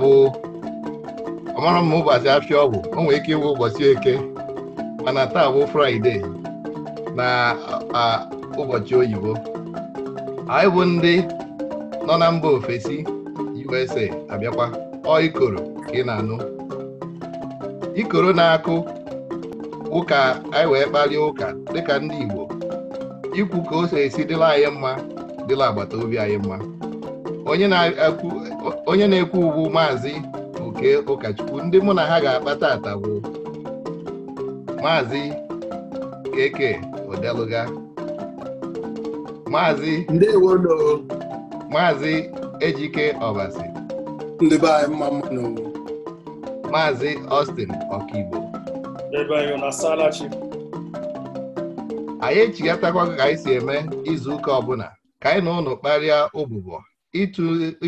bụ ọmara m ụbọchị afịa ọgwụ o nwere ike ịwụ ụbọchị eke mana taa bụ fraịde na ụbọchị oyibo anyị bụ ndị nọ na mba ofesi USA abịakwa ọ ikoro ka ị na-anụ ikoro na-akụ ụka anyị wee kparịa ụka dịka ndị Igbo ikwu ka o so esi dịla anyị mma dịla agbata obi anyị mma onye na-ekwu ugwu maazị oke ụkọchukwu ndị mụ na ha ga akpata atagbu. maazị keke odeluga maazị maazị ejike ọbasi ndị be anyị maazị Austin ọkaigbo anyị echigatakwa ka anyị si eme izu ụka ọbụla ka anyị na ụnụ kparịa ụbụbọ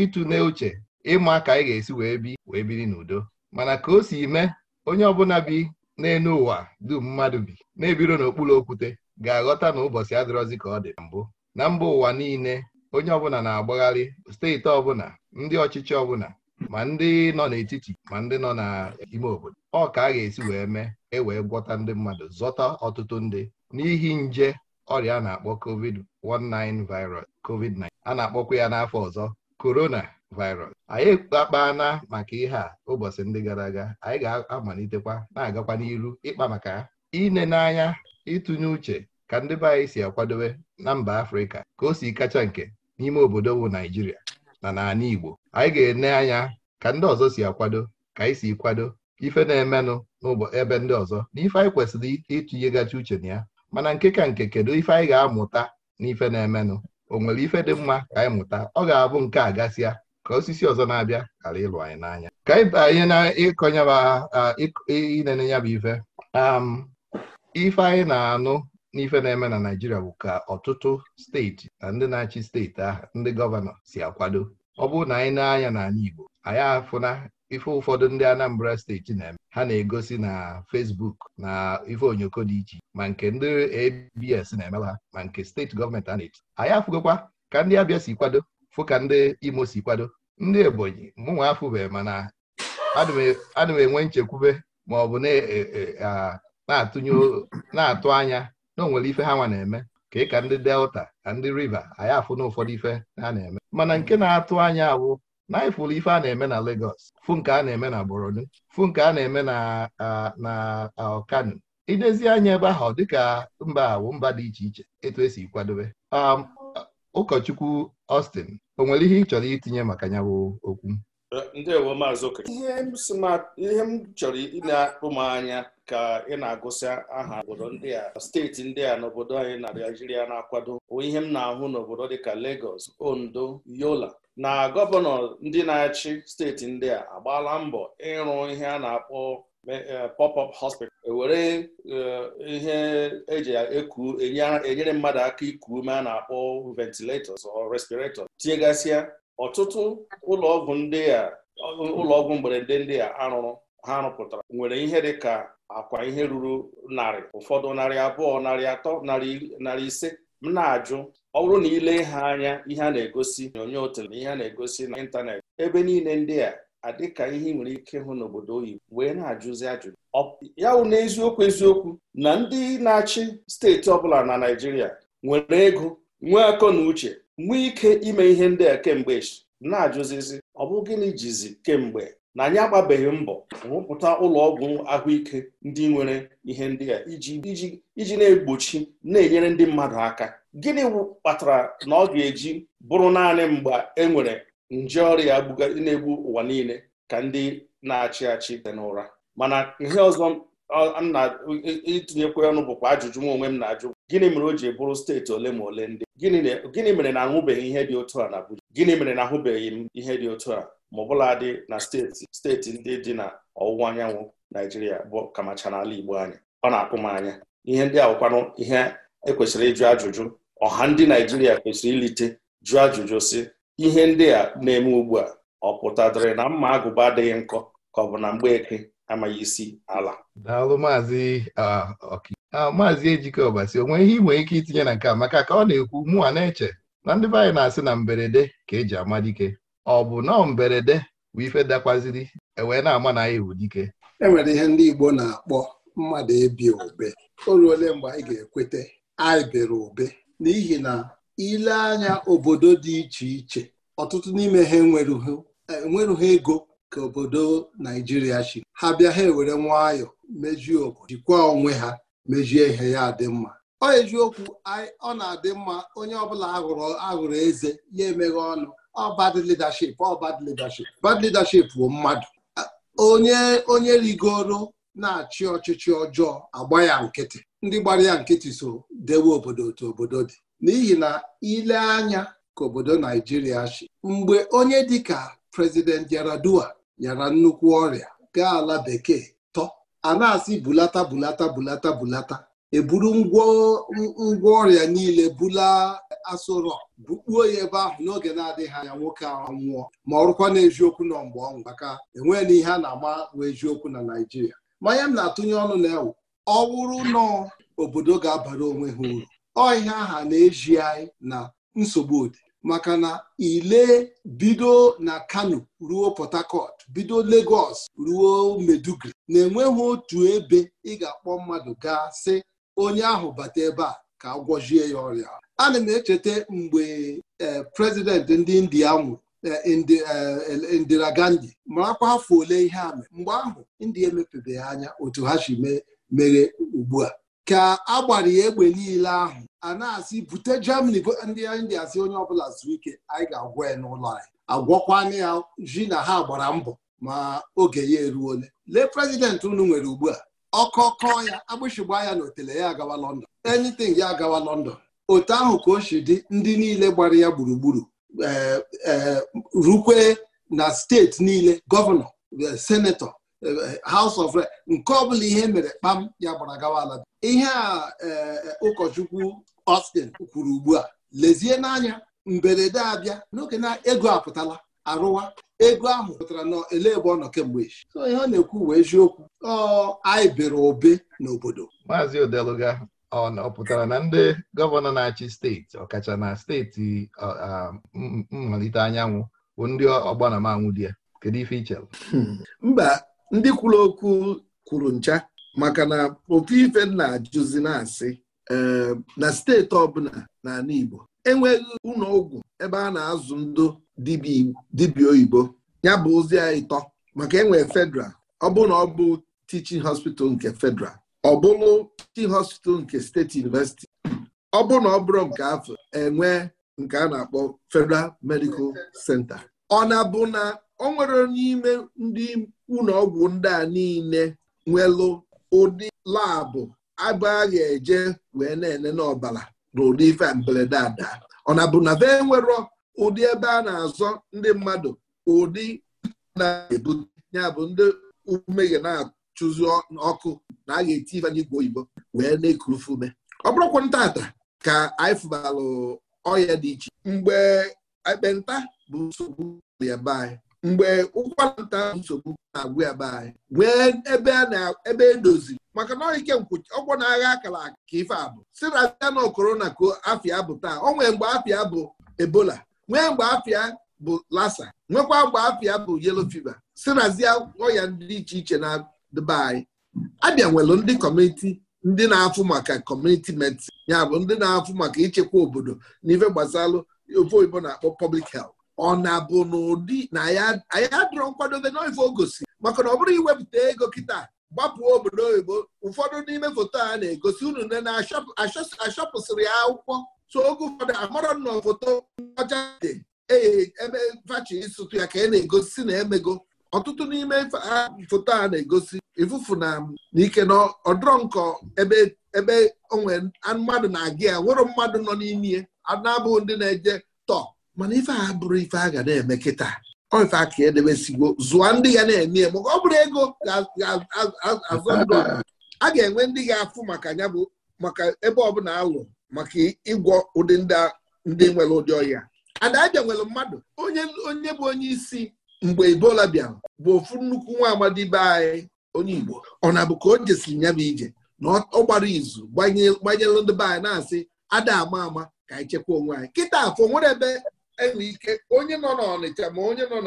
ịtụne uche ịma ka anyị ga-esi wee bi wee biri n'udo mana ka o si mee onye ọbụla bi n'elu ụwa dum mmadụ bi na-ebiro n'okpuru okwute ga-aghọta na ụbọchị adịrọzi ka ọ dị mbụ na mba ụwa niile onye ọbụla na-agbagharị steeti ọbụla ndị ọchịchị ọbụla ma ndị nọ n'etiti ma ndị nọ n'ime obodo ọ ka a ga-esi wee mee e wee gwọta ndị mmadụ zọta ọtụtụ ndị n'ihi nje ọrịa a na-akpọ covid-19 virus covid-19 a na-akpọkwa ya n'afọ ọzọ corona virus anyị akpaana maka ihe a ụbọchị ndị gara aga anyị ga-amalitekwa na-agakwa n'iru ịkpa maka ya ine n'anya ịtụnye uche ka ndị be anyị si akwadobe na mba afrịka ka o si kacha nke n'ime obodo bụ naijiria na n'ala igbo anyị ga-ene anya ka ndị ọzọ si akwado ka anyị si kwado ife na-emenụ n'ebe ndị ọzọ na ife anyị kwesịrị itinyegachi uche na ya mana nke ka nke kedu ife anyị ga-amụta n'ife na-emenụ o nwere ife dị mma ka anyị mụta ọ ga-abụ nke a gasịa ka osisi ọzọ na-abịa ghara ịlụ anyị n'anya ka anyị na ịkọnyenene ya bụ ife ife anyị na-anụ n'ife na-eme na naijiria bụ ka ọtụtụ steeti na ndị na-achị steeti ahụ ndị gọvanọ si akwado ọ bụrụ na anyị na-anya n'ala Igbo anyị afụna ife ụfọdụ ndị Anambra steeti na-eme ha na-egosi na Facebook na ife onyoko dị iche ma nke ndị ABS na-emelụ ha ma nke steeti gọọmenti a na-eti anyị afụgokwa ka ndị Abịa si kwado fụ ka ndị Imo si kwado ndị Ebonyi mụnwa afụbe mana ana e, m enwe nchekwube ma ọ bụ e, e, na-atụ anya na o nwere ife ha nwa na-eme ka ị ka ndị Delta na ndị River anyị afụ na ụfọdụ ife ha na-eme mana nke na-atụ anya awụ na ifụlụ ife a na-eme na legos fụ nke a na-eme na Borno fu nke a na-eme na na Kano idezi anya ebe ahụ dịka mba awụ mba dị iche iche etu esi kwadobe um, ụkọchukwu Austin o nwere ihe ị chọrọ itinye maka ya bụ okwu ihe m chọrọ ịna-akpụ m anya ka ị na-agụsị aha obodo ndị a steeti ndị a n'obodo anyị na Naijiria na-akwado ihe m na-ahụ n'obodo dịka legos Ondo Yola na gọvanọ ndị na-achị steeti ndị a agbaala mbọ ịrụ ihe a na-akpọ eh, pop-up hospital ewere eh, ihe eji eku enyere mmadụ aka iku ume a na-akpọ ventilators or respirators tinyegasịa ọtụtụ ụlọọgwụ ndị a ụlọọgwụ mberede ndị a arụrụ ha rụpụtara nwere ihe dị ka akwa ihe ruru narị ụfọdụ narị abụọ narị atọ narị ise m na-ajụ ọ bụrụ na ile ha anya ihe a na-egosi onyonyo tele na ihe a na-egosi na ịntanetị ebe niile ndị a adịka ihe ị nwere ike hụ n'obodo oyibo wee na-ajụzi ajụjụ ya bụ n'eziokwu eziokwu na ndị na-achị steeti ọbụla na Naịjirịa nwere ego nwee akọ na uche nwee ike ime ihe ndị a kemgbe na-ajụzizi ọ bụ gịnị jizi kemgbe na anyị agbabeghị mbọ rụpụta ụlọ ọgwụ ahụike ndị nwere ihe ndị a iji na-egbochi na-enyere ndị mmadụ aka gịnị kpatara na ọ ga-eji bụrụ naanị mgbe e nwere nje ọrịa na-egbu ụwa niile ka ndị na-achị achị dị n'ụra mana ihe ọzọ itinyekwa ọnụ bụkwa ajụjụ m onwe m na-ajụ gịnị mere o ji bụrụ steeti ole ma ole ndị gịnị mere na ahụbeghị ihe dị otu a na Abuja gịnị mere na ahụbeghị m ihe dị otu a ma ọbụladị na steeti steeti ndị dị na ọwụwa anyanwụ naijiria bụ kamacha n'ala igbo anyị ọ na-akpụ m anya ihe ndị a ihe ekwesịrị ịjụ ajụjụ ọha ndị naijiria kwesịrị ilite jụọ ajụjụ si ihe ndị a na-eme ugbu a ọ pụtadịrị na mma agụba adịghị nkọ ka ọ bụ na mgbeke amaghị isi ala daalụ maazị uh, uh, maazị ejike ọbasi onwe ihe ị ike itinye na nke a maka ka ọ na-ekwu mụnwa na-eche na ndị be anyị na-asị na mberede ka eji ama dike ọ bụ na mberede bụ ife dakwaziri ewee na-ama na ya ewu dike ihe ndị Igbo na-akpọ mmadụ ebi obe o ruole mgbe anyị ga-ekweta anyị bere obe n'ihi na ile anya obodo dị iche iche ọtụtụ n'ime ha enwerughị ego ka obodo Naijiria chi ha bịa ha ewere nwayọọ mejie obodo jikwaa onwe ha mejie ihe ya dị mma ọ eziokwu ọ na-adị mma onye ọbụla ahụrụ eze ya emeghe ọnụ ọ bad leadership ọ bad leadership bad leadership bụ mmadụ onye onye rigoro na-achị ọchịchị ọjọọ agba ya nkịtị ndị gbara ya nkịtị so dewe obodo otu obodo dị n'ihi na ile anya ka obodo Naijiria chi mgbe onye dịka prezident Yar'Adua nyara nnukwu ọrịa gaa ala bekee tọ a na-asị bulata bulata bulata bulata eburu ngwa ọrịa niile bula asụrọ bukpuo ya ebe ahụ n'oge na-adịghị anya nwoke ahụ nwụọ ma ọ rụkwa na eziokwu nọ mgbe ọ maka enweghị na ihe a na-ama bụ eziokwu na Naịjirịa manya m na-atụnye ọnụ na ewu ọ wụrụ nọ obodo ga-abara onwe ha uru ọ ihe aha na-eji anyị na nsogbu ụdị maka na ile bido na Kano ruo Port Harcourt bido Lagos ruo Maiduguri na-enweghị otu ebe ị ga-akpọ mmadụ gaa sị onye ahụ bata ebe a ka a gwọjie ya ọrịa ana m echeta mgbe e, prezident ndị india nwụrụ e, e, Indira gandi. marakwa afọ ole ihe a mere mgbe ahụ india emepebeghị anya otu ha si mere ugbu a ka a gbara ya egbe niile ahụ a na-asị bute Germany ndị india si onye ọbụla zuo ike anyị ga-agwọ ya n'ụlọ anyị agwọkwana ya ji na ha gbara mbọ ma oge ya ole lee prezidentị unu nwere ugbu a ọkọkọ ya agbụsịgba ya na ya agawa London anything ya agawa London otu ahụ ka o si dị ndị niile gbara ya gburugburu eh, eh, rukwe na steeti niile gọvanọ eh, senetọ House of Re nke ọbụla ihe mere kpam ya gbara gawa ala ihe a ụkọchukwu Austin kwuru ugbu a lezie n'anya mberede abịa n'oge na ego apụtala arụwa ego ahụ pụtara na ele ebe ọ nọ kemgbe echi so ọ na-ekwu uwe eziokwu ọ anyị bere obe n'obodo maazị odeluga ọ pụtara na ndị gọvanọ na-achị steeti ọkacha na steeti mmalite anyanwụ bụ ndị ọgbanamaanwụ di ya kedu ife iche hmm. mba ndị kwuru okwu kwuru ncha maka na ofu ife na-ajụzi na eh, na steeti ọbụla n'ala Igbo enweghị ụlọ ọgwụ ebe a na-azụ ndụ dibia oyibo ya bụ ozi ya ịtọ maka enwere federal ọ bụ na ọ bụ teaching hospital nke federal ọ bụrụ teaching hospital nke steeti university ọ bụ na ọ bụrụ nke afọ enwe nke a na-akpọ federal medical center ọ na-bụ na ọ nwere n'ime ndị ụlọ ọgwụ ndị a niile nwelụ ụdị labụ abụ a ga-eje wee na ene rụrụ ife mberede ada ọ na bụ na be nwerọ ụdị ebe a na-azọ ndị mmadụ ụdị na-ebute ya bụ ndị umeghe na-achụzi ọkụ na a ga-eti ife igwe oyibo wee na-ekurufe ume ọ bụrụkwa ntata ka anyị fụbalụ ọhịa dị iche mgbe ekpenta bụ nsogbu ya mgbe ụkwara nta nsogbu na-agwụ ya be anyị nwee ebe na-edozi, e maka na ike ọgwọ na-agha akara aka ife abụ si na abịa na korona ka afịa bụ taa o nwee mgbe afịa bụ ebola nwee mgbe afịa bụ lasa nwekwa mgbe afịa bụ yelo fiva si nazie ọya ndị iche iche na dịbe anyị abịa nwere ndị kọmiti ndị na-afụ maka kọmuniti medsin ya bụ ndị na-afụ maka ichekwa obodo na ife gbasalụ ofe oyibo na-akpọ pọblik helt ọ na-abụ n'ụdị na anyị adịrọ nkwadobe n'ife o gosi maka na ọ bụrụ iwepụta ego kịta gbapụ obodo oyibo ụfọdụ n'ime foto a na-egosi unu nne na-achọpụsịrị ya akwụkwọ so oge ụfọdụ amara na foto ọcha dị ebe fachi ịsụtụ ya ka e na-egosi na emego ọtụtụ n'ime foto a na-egosi ifufu na ike na ọdọrọ nkọ ebe onwe mmadụ na-aga ya nwụrụ mmadụ nọ n'ime ya na-abụghị ndị na-eje tọ mana ife a bụrụ ife a ga na-eme kịta ọ ife aka edebesigbo zụọ ndị ga na-eme eme ọ bụrụ ego a ga-enwe ndị ga-afụ maka ya bụ maka ebe alụ maka ịgwọ ụdị ndị nwere ụdị ọhịa adaja nwere mmadụ onye bụ onye isi mgbe Ebola bịara bụ ofu nnukwu nwa amadi be anyị onye Igbo ọ na-abụ ka o jesiri ya bụ ije na ọ gbara izu gbanyelụ ndị be anyị na-asị ada ama ama ka anyị chekwa onwe anyị kịta afọ nwere ebe nwere ike onye nọ n'Ọnịcha ma onye nọ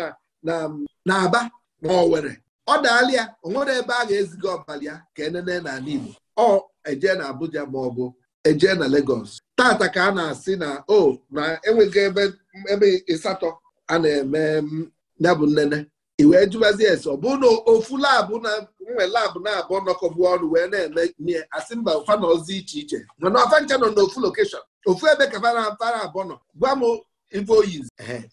n'Aba ma were. ọ daala ya o nwere ebe a ga-eziga ọbali ya ka enene n'ala Igbo ọ eje na Abuja ma ọ bụ eje na Lagos tata ka a na-asị na o na enweghị ebe ịsatọ a na-eme ya bụ nnene i wee jụbazi ese ọ bụ na ofu labụ na nwe labụ na-abụ nọkọbụ ọnụ wee na-eme ihe asị mba ụfa na iche iche mana ọfa ncha nọ n'ofu lokeshọn ofu ebe ka fara abụọ nọ gwa m ife oyizi e,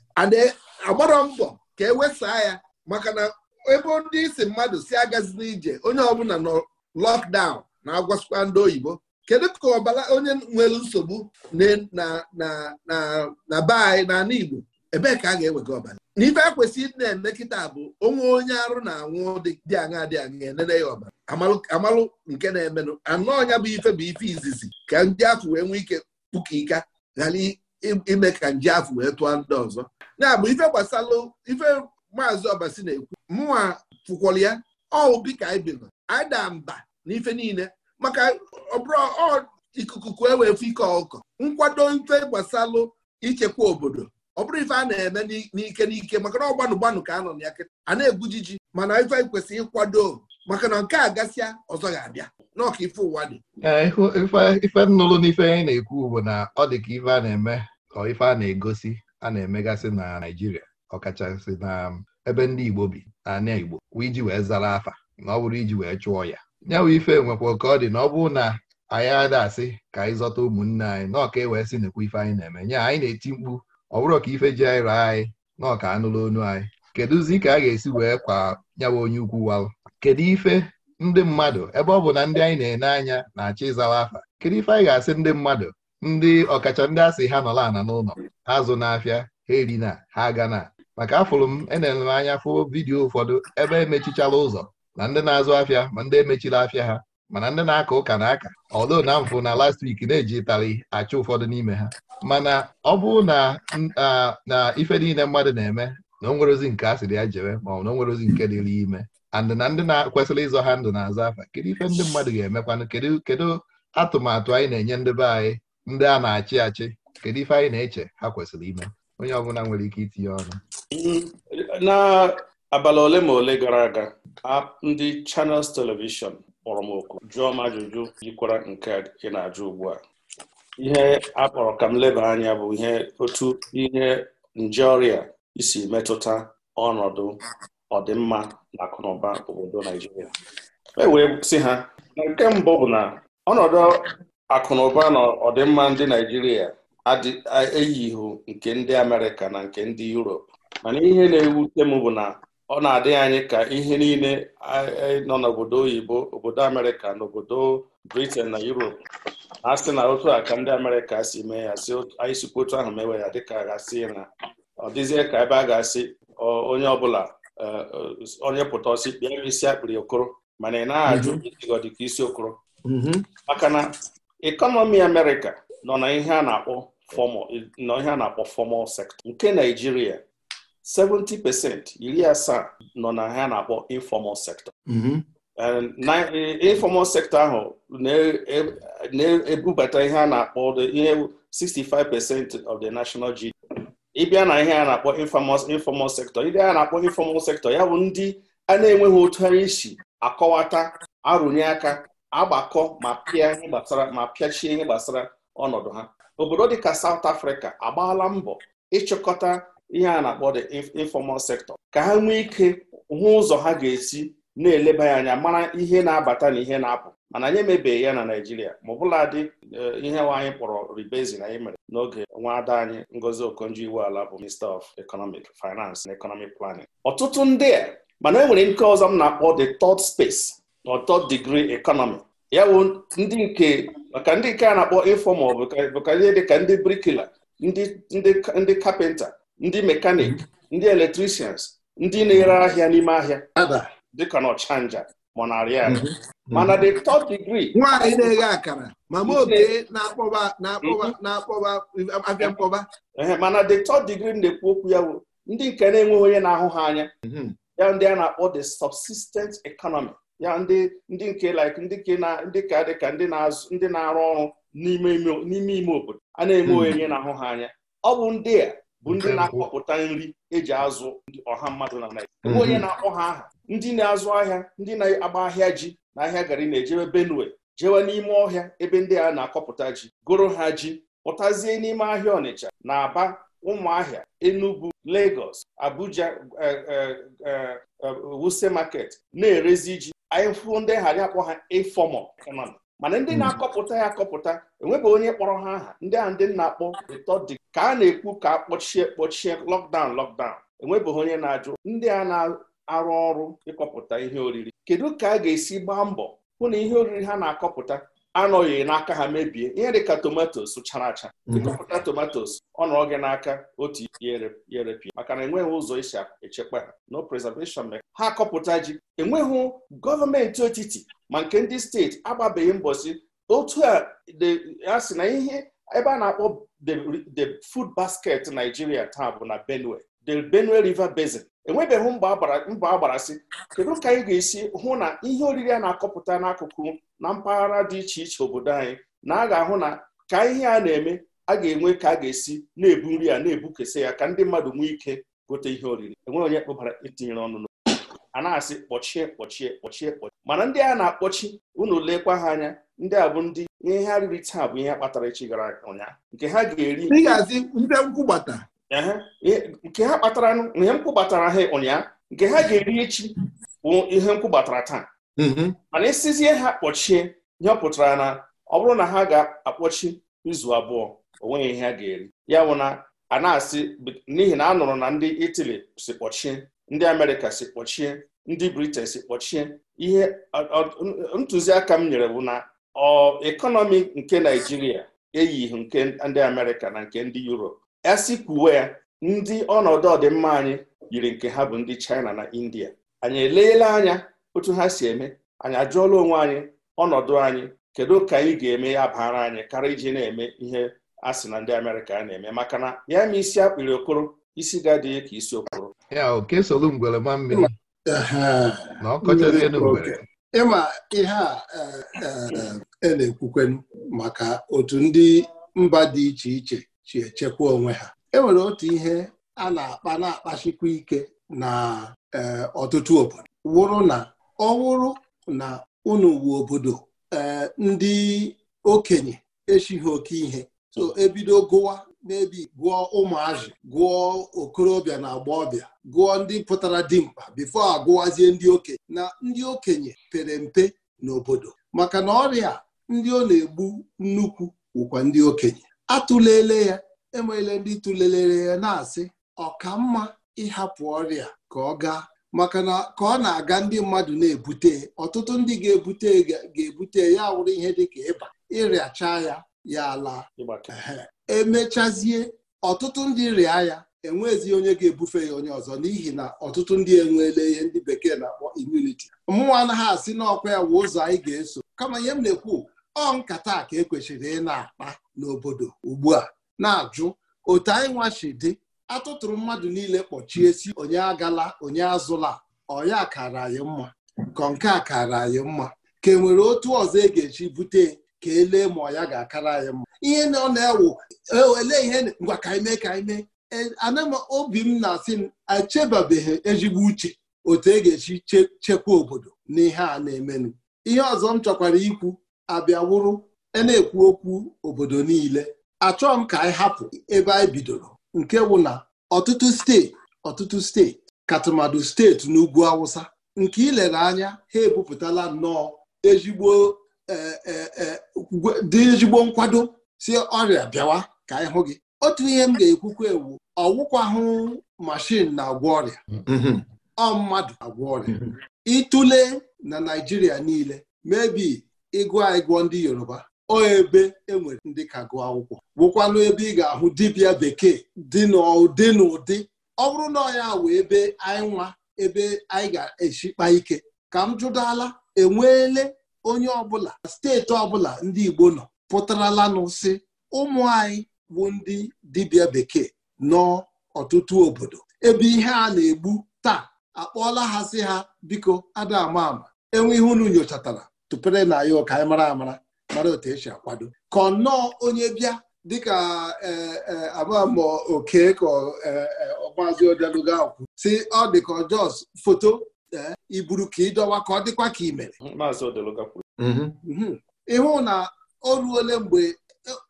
agbara mbọ ka e wesaa ya maka na ebe ndị isi mmadụ si agazi n'ije onye ọbụla nọ lọkdaụn na-agwasịkwa ndị oyibo kedu ka ọbara onye nwere nsogbu na be anyị na ala Igbo ebee ka a ga-ewega ọbara n'ife a kwesịrị ịdị na-eme kịta bụ onwe onye arụ na-anwụ dị aṅa dị aṅa enene ya ọbara amalụ nke na-emenụ anụ ọnya bụ ife bụ ife izizi ka ndị afọ wee nwee ike pụka ika ghara ime ka nje afọ wee tụọ ndị ọzọ ya ife gbasalụ ife maazị ọbasi na-ekwu mụnwa fụkwọrọ ya ọwụ dịka anyị bino anyị daa mba na ife niile maka ọbụrụ ikuku kue wee fụ ike ọkụkọ nkwado ife gbasalụ ichekwa obodo ọ bụrụ ife a na-eme n'ike n'ike maka na ọgbanụ gbanụ ka a nọ na ya kịta a na-egwujiji mana ife anyị kwesịrị ịkwado maka na nke a gasịa ọzọ ga-abịa n'ọka ife ụwa dị ife nnụrụ n'ife anyị na-ekwu bụ na ọ dị ka ife a na-eme ka ife a na-egosi a na-emegasị na Naịjirịa ọkachasị na ebe ndị Igbo bi na Igbo iji wee zara afa na ọ bụrụ iji wee chụọ ya nyawa ife nwekwa ka ọ dị na ọ bụrụ na anyị ada asị ka anyị zọta ụmụnne anyị na e wee sị nekwa ife anyị na-eme nya anyị na-eti mkpu ọ bụrụ ka ife ji anyị raa anyị na ọka anụla onu anyị kedụzi ka a ga-esi wee kwa nyawa onye ukwu walụ kedu ife ndị mmadụ ebe ọ bụ na ndị anyị na-ene anya na-achọ ịzawa afa kedu ife anyị ga-asị ndị mmadụ ndị ọkacha ndị asị ha nọla ana n'ụlọ azụ n'afịa ha erina ha aga na maka afụrụ m enere m anya fụ vidiyo ụfọdụ ebe emechichara ụzọ na ndị na-azụ afịa ma ndị emechiri afịa ha mana ndị na-aka ụka na aka ọdo na mfụ na last week na-eji tarị achụ ụfọdụ n'ime ha mana ọ bụrụ na na ife niile mmadụ na-eme na onwerozi nke a ya jere ma ọ na o nke dịrị ime andị na ndị na-kwesịrị ịzọ ha ndụ na-azụ afa kedu ife ndị mmadụ ga-emekwanụ kedu atụmatụ anyị na-enye ndị be anyị ndị a na-achị achị kedu ife anyị na-eche ha kwesịrị ime onye ọbụla nwere ike itinye ọnụ n'abalị ole ma ole gara aga ndị chanels Television kpọrọ m oku jụọ m ajụjụ yikwara nke ị na-ajụ ugbu a ihe a kpọrọ ka m leba anya bụ ihe otu ihe nje ọrịa isi metụta ọnọdụ ọdịmma na akụnụba obodo Naijiria e wee ha nke mbụ bụ na ọnọdụ akụnụba na ọdịmma ndị Naijiria ihu nke ndị Amerịka na nke ndị Europe mana ihe na-ewute m bụ na ọ na-adịghị anyị ka ihe niile e, nọ n'obodo oyibo obodo Amerịka na obodo britan na Europe a sị na otu a ka ndị Amerịka si mee ya si anyị sikwa otu ahụ mewe ya dịka gasị na ọ dịzie ka ebe a ga-asị onye ọbụla e, e, onye pụta ọsị kpịa isi akpịrị okoro mana ị naghị ajụ ịdịgọ isi okoro mm-hmm. maka na Ekọnọmi Amerịka nọ na ihe a na-akpọ formal nọ ihe a na-akpọ nke Naijiria 70% iri asaa nọ na ihe a na-akpọ informal sector mm-hmm. informal sector ahụ na-ebubata e, ihe a na-akpọ ihe 65% of the national GDP ịbịa na ihe a na-akpọ informal sector ndị a na-akpọ informal sector ya bụ ndị a na-enweghị otu ha isi akọwata arụnye aka agbakọ ma pịa ihe gbasara ma pịachie ihe gbasara ọnọdụ ha obodo dịka South Africa agbaala mbọ ịchịkọta ihe a na-akpọ the informal sector ka ha nwee ike hụ ụzọ ha ga-esi na-eleba ya anya mara ihe na-abata na ihe na-apụ mana anyị emebeghị ya na naijiria ma ọbụla dị eh, ihe anyị kpọrọ ribezi na anyị mere n'oge nwa ada anyị Ngozi okonjo ala bụ Minister of Economic Finance and Economic Planning. ọtụtụ ndị a mana e nwere nke ọzọ m na-akpọ the third space n'ọtọ digrii ekọnọmi ya bụ ndị nke maka ndị nke a na-akpọ ịfọmal bụka ihe dịka ndị brikila ndị kapịnta ndị mekanik ndị eletrishans ndị na-ere ahịa n'ime ahịa dịka na ọchanja ma ya. arị mana the third degree nwaanyị na-eghe akara mama obe mhm. na-akpọba abịa mkpọba mana the third degree na-ekwu okwu ya bụ ndị nke na-enweghị onye na-ahụ ha anya mhm. ya ndị a na-akpọ the subsistence economy ya ndị ndị nke like ndị ke na ndị ka dị ka ndị na-azụ ndị na-arụ ọrụ n'ime ime obodo a na-eme hmm. onye na-ahụ ha anya ọ bụ ndị a bụ ndị na-akọpụta nri eji azụ ọha mmadụ na Naịjirịa hmm. onye na-akpọ ha aha ndị na-azụ ahịa ndị na-agba ahịa ji na ahịa gari na-ejebe Benue jewe n'ime ọhịa ebe ndị a na-akọpụta ji goro ha ji pụtazie n'ime ahịa Ọnịcha na Aba Ụmụahịa Enugu Lagos Abuja eh, eh, eh, Wuse market na-erezi ji anyị fụo ndị ghara akpọ ha informal economy mana ndị mm. na-akọpụta ya akọpụta enwebeghị onye kpọrọ ha aha ndị a ndị na-akpọ dị ka a na-ekwu ka a kpọchie kpọchie lọkdaụn lọkdaụn enwebeghị onye na-ajụ ndị a na-arụ ọrụ ịkọpụta ihe oriri kedu ka a ga-esi gbaa mbọ hụ na ihe oriri ha na-akọpụta anọghị n'aka ha mebie ihe dị ka tomatos chara acha mhm. ịkọpụta tomatos ọ nọrọ n'aka otu yerepịa maka na enweghị ụzọ esi echekwa ha no preservation meka ha kọpụta ji enweghị gọọmenti otiti ma nke ndị steeti agbabeghị mbọsi otu a a sị na ihe ebe a na-akpọ the food basket Nigeria taa bụ na Benue the Benue River Basin enwebeghị mbọ agbarasị kedu ka anyị ga-esi hụ na ihe oriri a na-akọpụta n'akụkụ na mpaghara dị iche iche obodo anyị na a ga-ahụ na ka ihe a na-eme a ga-enwe ka a ga-esi na-ebu nri a na-ebukesa ya ka ndị mmadụ nwee ike gote ihe oriri enweghị onye kpụbara itinyere ọnụ a na-asị kpọchie kpọchie kpọchie kpọchie mana ndị a na-akpọchi unu lekwa ha anya ndị a bụ ndị ihe ha riri taa bụ ihe kpatara echi gara ụnyaahụ nke ha ga-eri nke ha kpatara ihe mkpụbatara ha ụnyaahụ nke ha ga-eri echi bụ ihe m taa mm-hmm. mana isizie ha kpọchie ihe ọ pụtara na ọ bụrụ na ha ga-akpọchi izu abụọ onweghị ihe ha ga-eri ya bụ na a na-asị n'ihi na a nụrụ na ndị Italy si kpọchie ndị Amerịka si kpọchie ndị Britain si kpọchie ihe ntụziaka m nyere bụ na ọ ekọnọmi nke Naijiria eyighị nke ndị Amerịka na nke ndị Europe esikwuwe ndị ọnọdụ ọdịmma anyị yiri nke ha bụ ndị China na India anyị eleela anya otu ha si eme anyị ajụọla onwe anyị ọnọdụ anyị kedu ka anyị ga-eme ya bara anyị karịa iji na-eme ihe a sị na ndị Amerịka na-eme maka na ya ma isi akpịrị okoro isi ga-adịghị ka isi okoro ya ịma ihe a e, e, e, na-ekwukwenu maka otu ndị mba dị iche iche chi echekwa onwe ha e nwere otu ihe a na-akpa na-akpachikwa ike na eh, ọtụtụ obodo wụrụ na ọ wụrụ na unu wu obodo eh, ndị okenye echighị oke ihe so ebido gụwa n'ebi gụọ ụmụazị gụọ okorobịa na agbọghọbịa gụọ ndị pụtara dimkpa bifo agụwazie ndị okenye na ndị okenye pere mpe n'obodo maka na ọrịa ndị ọ na-egbu nnukwu wụkwa ndị okenye atụlele ya enweele ndị tụlelere ya na-asị mma ịhapụ ọrịa ka ọ gaa maka na ka ọ na-aga ndị mmadụ na-ebute ọtụtụ ndị ga-ebute ga-ebute ya wụrụ ihe dịka ịba ịrịachaa ya ya ala emechazie ọtụtụ ndị rịa ya enwezi onye ga-ebufe ya onye ọzọ n'ihi na ọtụtụ ndị enweela ihe ndị bekee na-akpọ immunity mmụọ anaghị asị n'ọkwa ya wụ ụzọ anyị ga-eso kama ihe m na-ekwu ọ nkata ka e kwesịrị ị na-akpa n'obodo ugbu a na-ajụ otu anyị nwachi dị atụtụrụ mmadụ niile kpọchie si onye agala onye azụla ọya kara anyị mma ka nke a kara anyị mma ka e nwere otu ọzọ e ga-eji bute ka elee ma ọya ga-akara anyị mma ihe na ọ na-ewu e ele ihe ngwa ka anyị ka anyị mee e, ana m obi m na-asị m echebabeghị ezigbo uche otu e ga-eji chekwa obodo n'ihe a na-emenụ ihe ọzọ m chọkwara ikwu abịawụrụ e na-ekwu okwu obodo niile achọọ m ka anyị hapụ ebe anyị bidoro nke wụ na ọtụtụ steeti ọtụtụ steeti katụmadụ steeti n'ugwu awụsa nke ilere anya ha ebupụtala nnọọ ezigbo e, e, e, dị ezigbo nkwado si ọrịa bịawa ka anyị hụ gị otu ihe m ga-ekwukwa ewu hụ mashin na-agwọ ọrịa mm-hmm. ọ mmadụ agwọ ọrịa ịtụle na Naijiria niile mebi ịgụ anyị gụọ ndị Yoruba o ebe enwere ndị ka gụọ akwụkwọ wụkwanụ ebe ị ga-ahụ dibịa bekee dị n'ụdị na ụdị ọ bụrụ na ọya wụ ebe anyị nwa ebe anyị ga-echikpa ike ka m jụdala enweele onye ọbụla steeti ọbụla ndị Igbo nọ pụtaralanụ si ụmụ anyị bụ ndị dibịa bekee nọ ọtụtụ obodo ebe ihe a na-egbu taa akpọọla ha si ha biko ada ama ama enwe unu nyochatara tụpere na ya ụka anyị mara amara mara otu esi akwado ka ọnọọ onye bịa dịka e, e, abamọ oke ka e, ọgbazi odeluga okwu si ọ dị ka foto iburu ka ịdọwa ka ọ dịkwa ka imere mhm. mhm. ịhụ na o ruole mgbe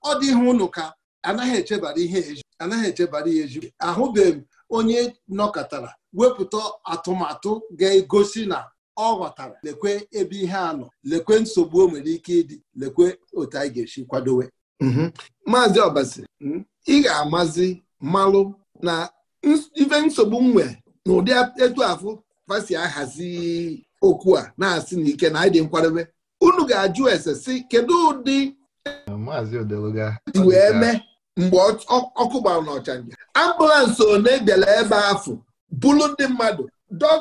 ọ dị ụnụ ka anaghị echebara ihe eju anaghị echebara ihe eju ahụbeghị m onye nọkọtara wepụta atụmatụ ga-egosi na ọ ghọtara lekwe ebe ihe a nọ lekwe nsogbu o nwere ike ịdị lekwe otu anyị ga-esi kwadowe mhm. maazị ọbasi hmm? ị ga-amazi malụ na ife nsogbu nwe na ụdị etu afụ fasi ahazi okwu a na-asị na ike na anyị dị unu ga-ajụ ese si kedu ụdị wee mee mgbe ọkụ gbara n'ọchanja ambụlansị one bịara ebe afọ, bulu ndị mmadụ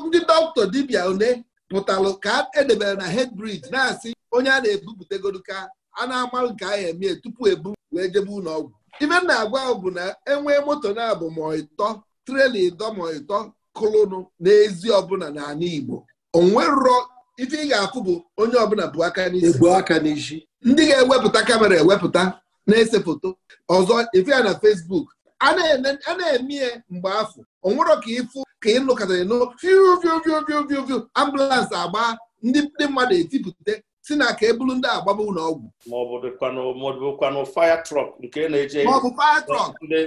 ndị dọkịta dibịa one pụtalụ ka edebere na head bridge na-asị onye a na-ebupụtagoro ka a na-amalụ nke ya emie tupu ebu wee jebe ụlọọgwụ ime ibe m na-agwa ọgwụ bụ na enwee moto na-abụ ma ịtọ trela ịdọ ma ịtọ kụlụnụ n'ezi ọbụla n'ala Igbo onwerọ ife ị ga-afụ bụ onye ọbụla bụ aka aka n'isi ndị ga-ewepụta kamera ewepụta na-ese foto ọzọ ife ya na Facebook a na-eme mgbe afọ onwerọ ka ịfụ ka ị ịnụ katara fiu ambụlansị agba ndị mmadụ etipụta si na ka ebulu ndị agbaba ụlọ ọgwụ maọbụ dịkwanụ fire truck nke na-eje maọbụ fire truck ndị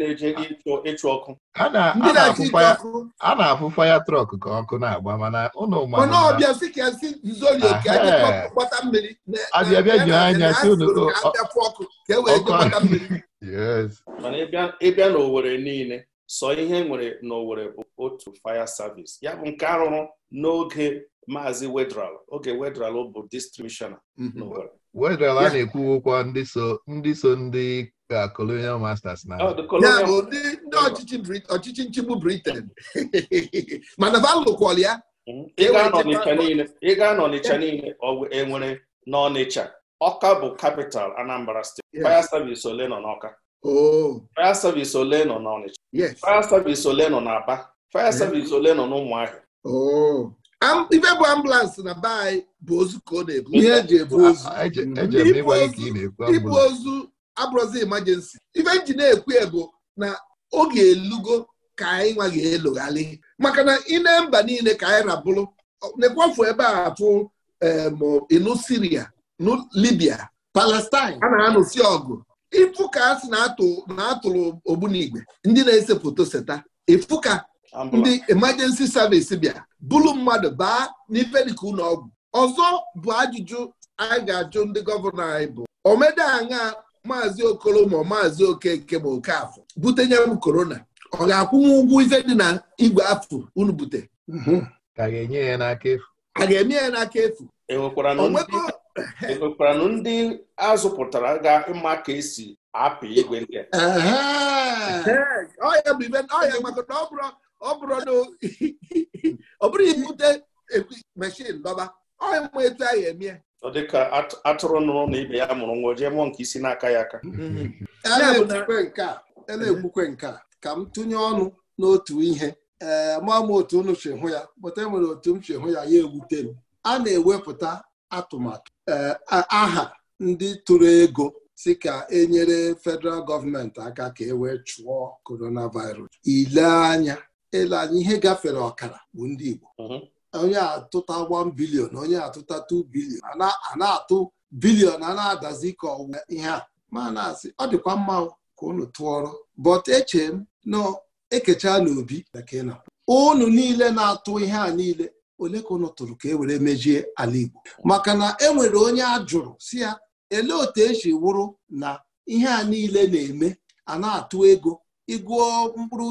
na-eje ịchụ ọkụ a na-afụ fire trọk ka ọkụ na-agba mana ụlọ mana ọbịa si ka si zoli ka gbata mmiri abịabịa ji anya si ọkụ ka e wee gbata mmiri mana ịbịa n'Owere niile sọ ihe nwere n'Owerri bụ otu fire service ya bụ nke arụrụ n'oge Maazi Wedral oge Wedral bụ distribushona mhm. n'Owerri Wedral a na-ekwu ụkwọ ndị so ndị so ndị ka colonial masters na oh, ndị ọchịchị nchigbu Britain mana valụkwal ya mhm. e Ịga gaa n'Ọnịcha niile enwere e n'Ọnịcha Ọka bụ capital Anambra steeti fire service ole nọ n'Ọka oh. fire service ole nọ n'Ọnịcha fire service ole nọ n'Aba fire eh? service ole nọ n'Ụmụahịa oh. ibe bụ ambụlansị na be anyị bụ ozu ka ọ na-ebu ihe eji ebu ozu ibu ozu abụrụzi emergency ife nji na-ekwu ebo na ọ ga elugo ka anyị nwaghị ga-eloghalị maka na ị na mba niile ka anyị rabụrụ na-ekwafu ebe a fụ ịnụ Siria na Libya Palestine a na Si ọgụ ifu ka a sị na-atụrụ ogbunigwe ndị na-ese foto seta ifu ka ndị emergency service bịa bụrụ mmadụ baa n'ife ụlọ ọgwụ ọzọ bụ ajụjụ anyị ga-ajụ ndị gọvanọ anyị bụ omede aṅa maazị okoro ma maazị okeke ma okafọ butenye m korona ọ ga-akwụnwe ụgwọ ife dị na igwe afọ unu bute mhm. a ga-enye ya n'aka efu e ị nwekwara na ndị azụpụtara ga mma ka esi apị igwe ndị ọ bụrụ ibute meshin dọba ọya ma etu a anyị emie ọ dị ka atụrụ nụrụ na ibe ya mụrụ nwa jee mụọ nke isi n'aka ya aka a na-ekwukwe nke a ka m tụnye ọnụ n'otu ihe ee ma m otu unu si hụ ya pụta enwere otu m si hụ ya ya ewute m a na-ewepụta atụmatụ Eh, aha ndị tụrụ ego si ka enyere federal gọọmenti aka ka e wee chụọ coronavirus ile anya ele anya ihe gafere ọkara bụ ndị Igbo mhm. onye atụta 1 bilion onye atụta 2 bilion a na-atụ bilion a na-adazi ka ọwụ ihe a ma na-asị ọ dịkwa mma ka unu tụọrọ but eche m na e n'obi unu niile na-atụ ihe a niile ole ka ụlọ tụrụ ka e were mejie ala Igbo maka na e nwere onye a jụrụ si ya elee otu esi wụrụ na ihe a niile na-eme a na-atụ ego ịgụọ mkpụrụ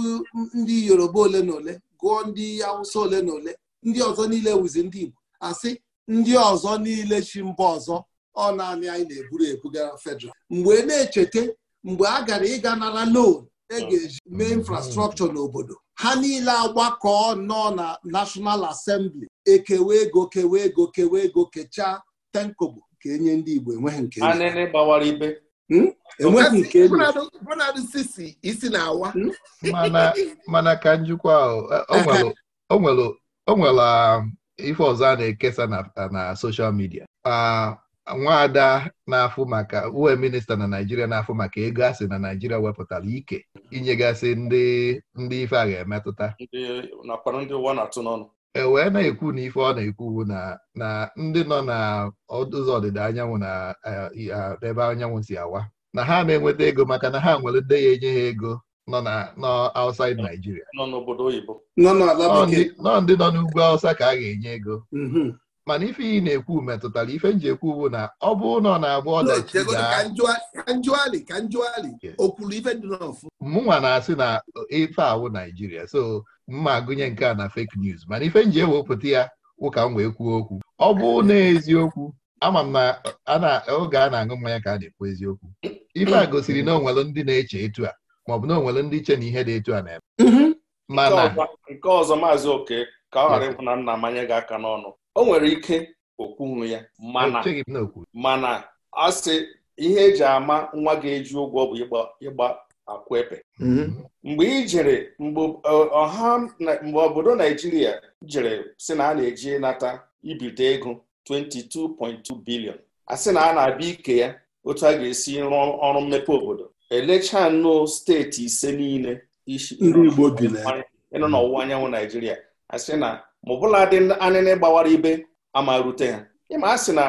ndị Yoruba ole na ole gụọ ndị Awụsa ole na ole ndị ọzọ niile wụzi ndị Igbo asị ndị ọzọ niile chi mba ọzọ ọ naanị anyị na-eburu ebugara federal mgbe e na-echeta mgbe a gara ịga nara loan e ga-eji mee infrastrọkchọ n'obodo ha niile agbakọ nọ na National Assembly ekewe ego kewe ego kewe ego kechaa tenkobo ka enye ndị Igbo enweghị nke mana ka njikwa ọ nwere um, ife ọzọ a na-ekesa na social media ah, nwaada na-afụ maka uwe minista na naijiria na-afụ maka ego asị na naijiria wepụtara ike inyegasị ndị ndị ife a ga-emetụta e wee na-ekwu na ife ọ na-ekwu na na ndị nọ na ụzọ ọdịda anyanwụ na e, ebe anyanwụ si awa na ha na-enweta ego maka na ha nwere ndị ya enye ha ego nọ na outside Naijiria nọ ndị nọ n'ugwu Awụsa ka a ga-enye ego mhm. mana ife iyi na-ekwu metụtara ife nji ekwu bụ na ọ bụ na na-agba ọdachi mụnwa na-asị na ife awụ Naijiria so mma gụnye nke a na fake news mana ife nji ewepụta ya ụka m wee kwuo okwu ọ bụ na eziokwu ama m na oge a na-aṅụ mmanya ka a na-ekwu eziokwu ife a gosiri na onwere ndị na-eche etu a maọbụ na onwere ndị che na ihe dị etu a na-eme mhm. nke ọzọ maazị oke ka ọ ghara ịkwụ na nna manye gị aka n'ọnụ o nwere ike okwunwu ya mana mana asị ihe eji ama nwa ga-eji ụgwọ bụ ịgba akwepe mm-hmm. mgbe ị mgbe ọha mgbe obodo Naijiria jere sị na a na-eji nata ibite ego 22.2 bilion asị na a na-abịa ike ya otu a ga-esi rụọ ọrụ mmepe obodo elechaa steeti ise niile isi n'ọwụwa anyanwụ Naijiria sị na ma ọbụla dị anịnị gbawara ibe ama rute ha ịma a na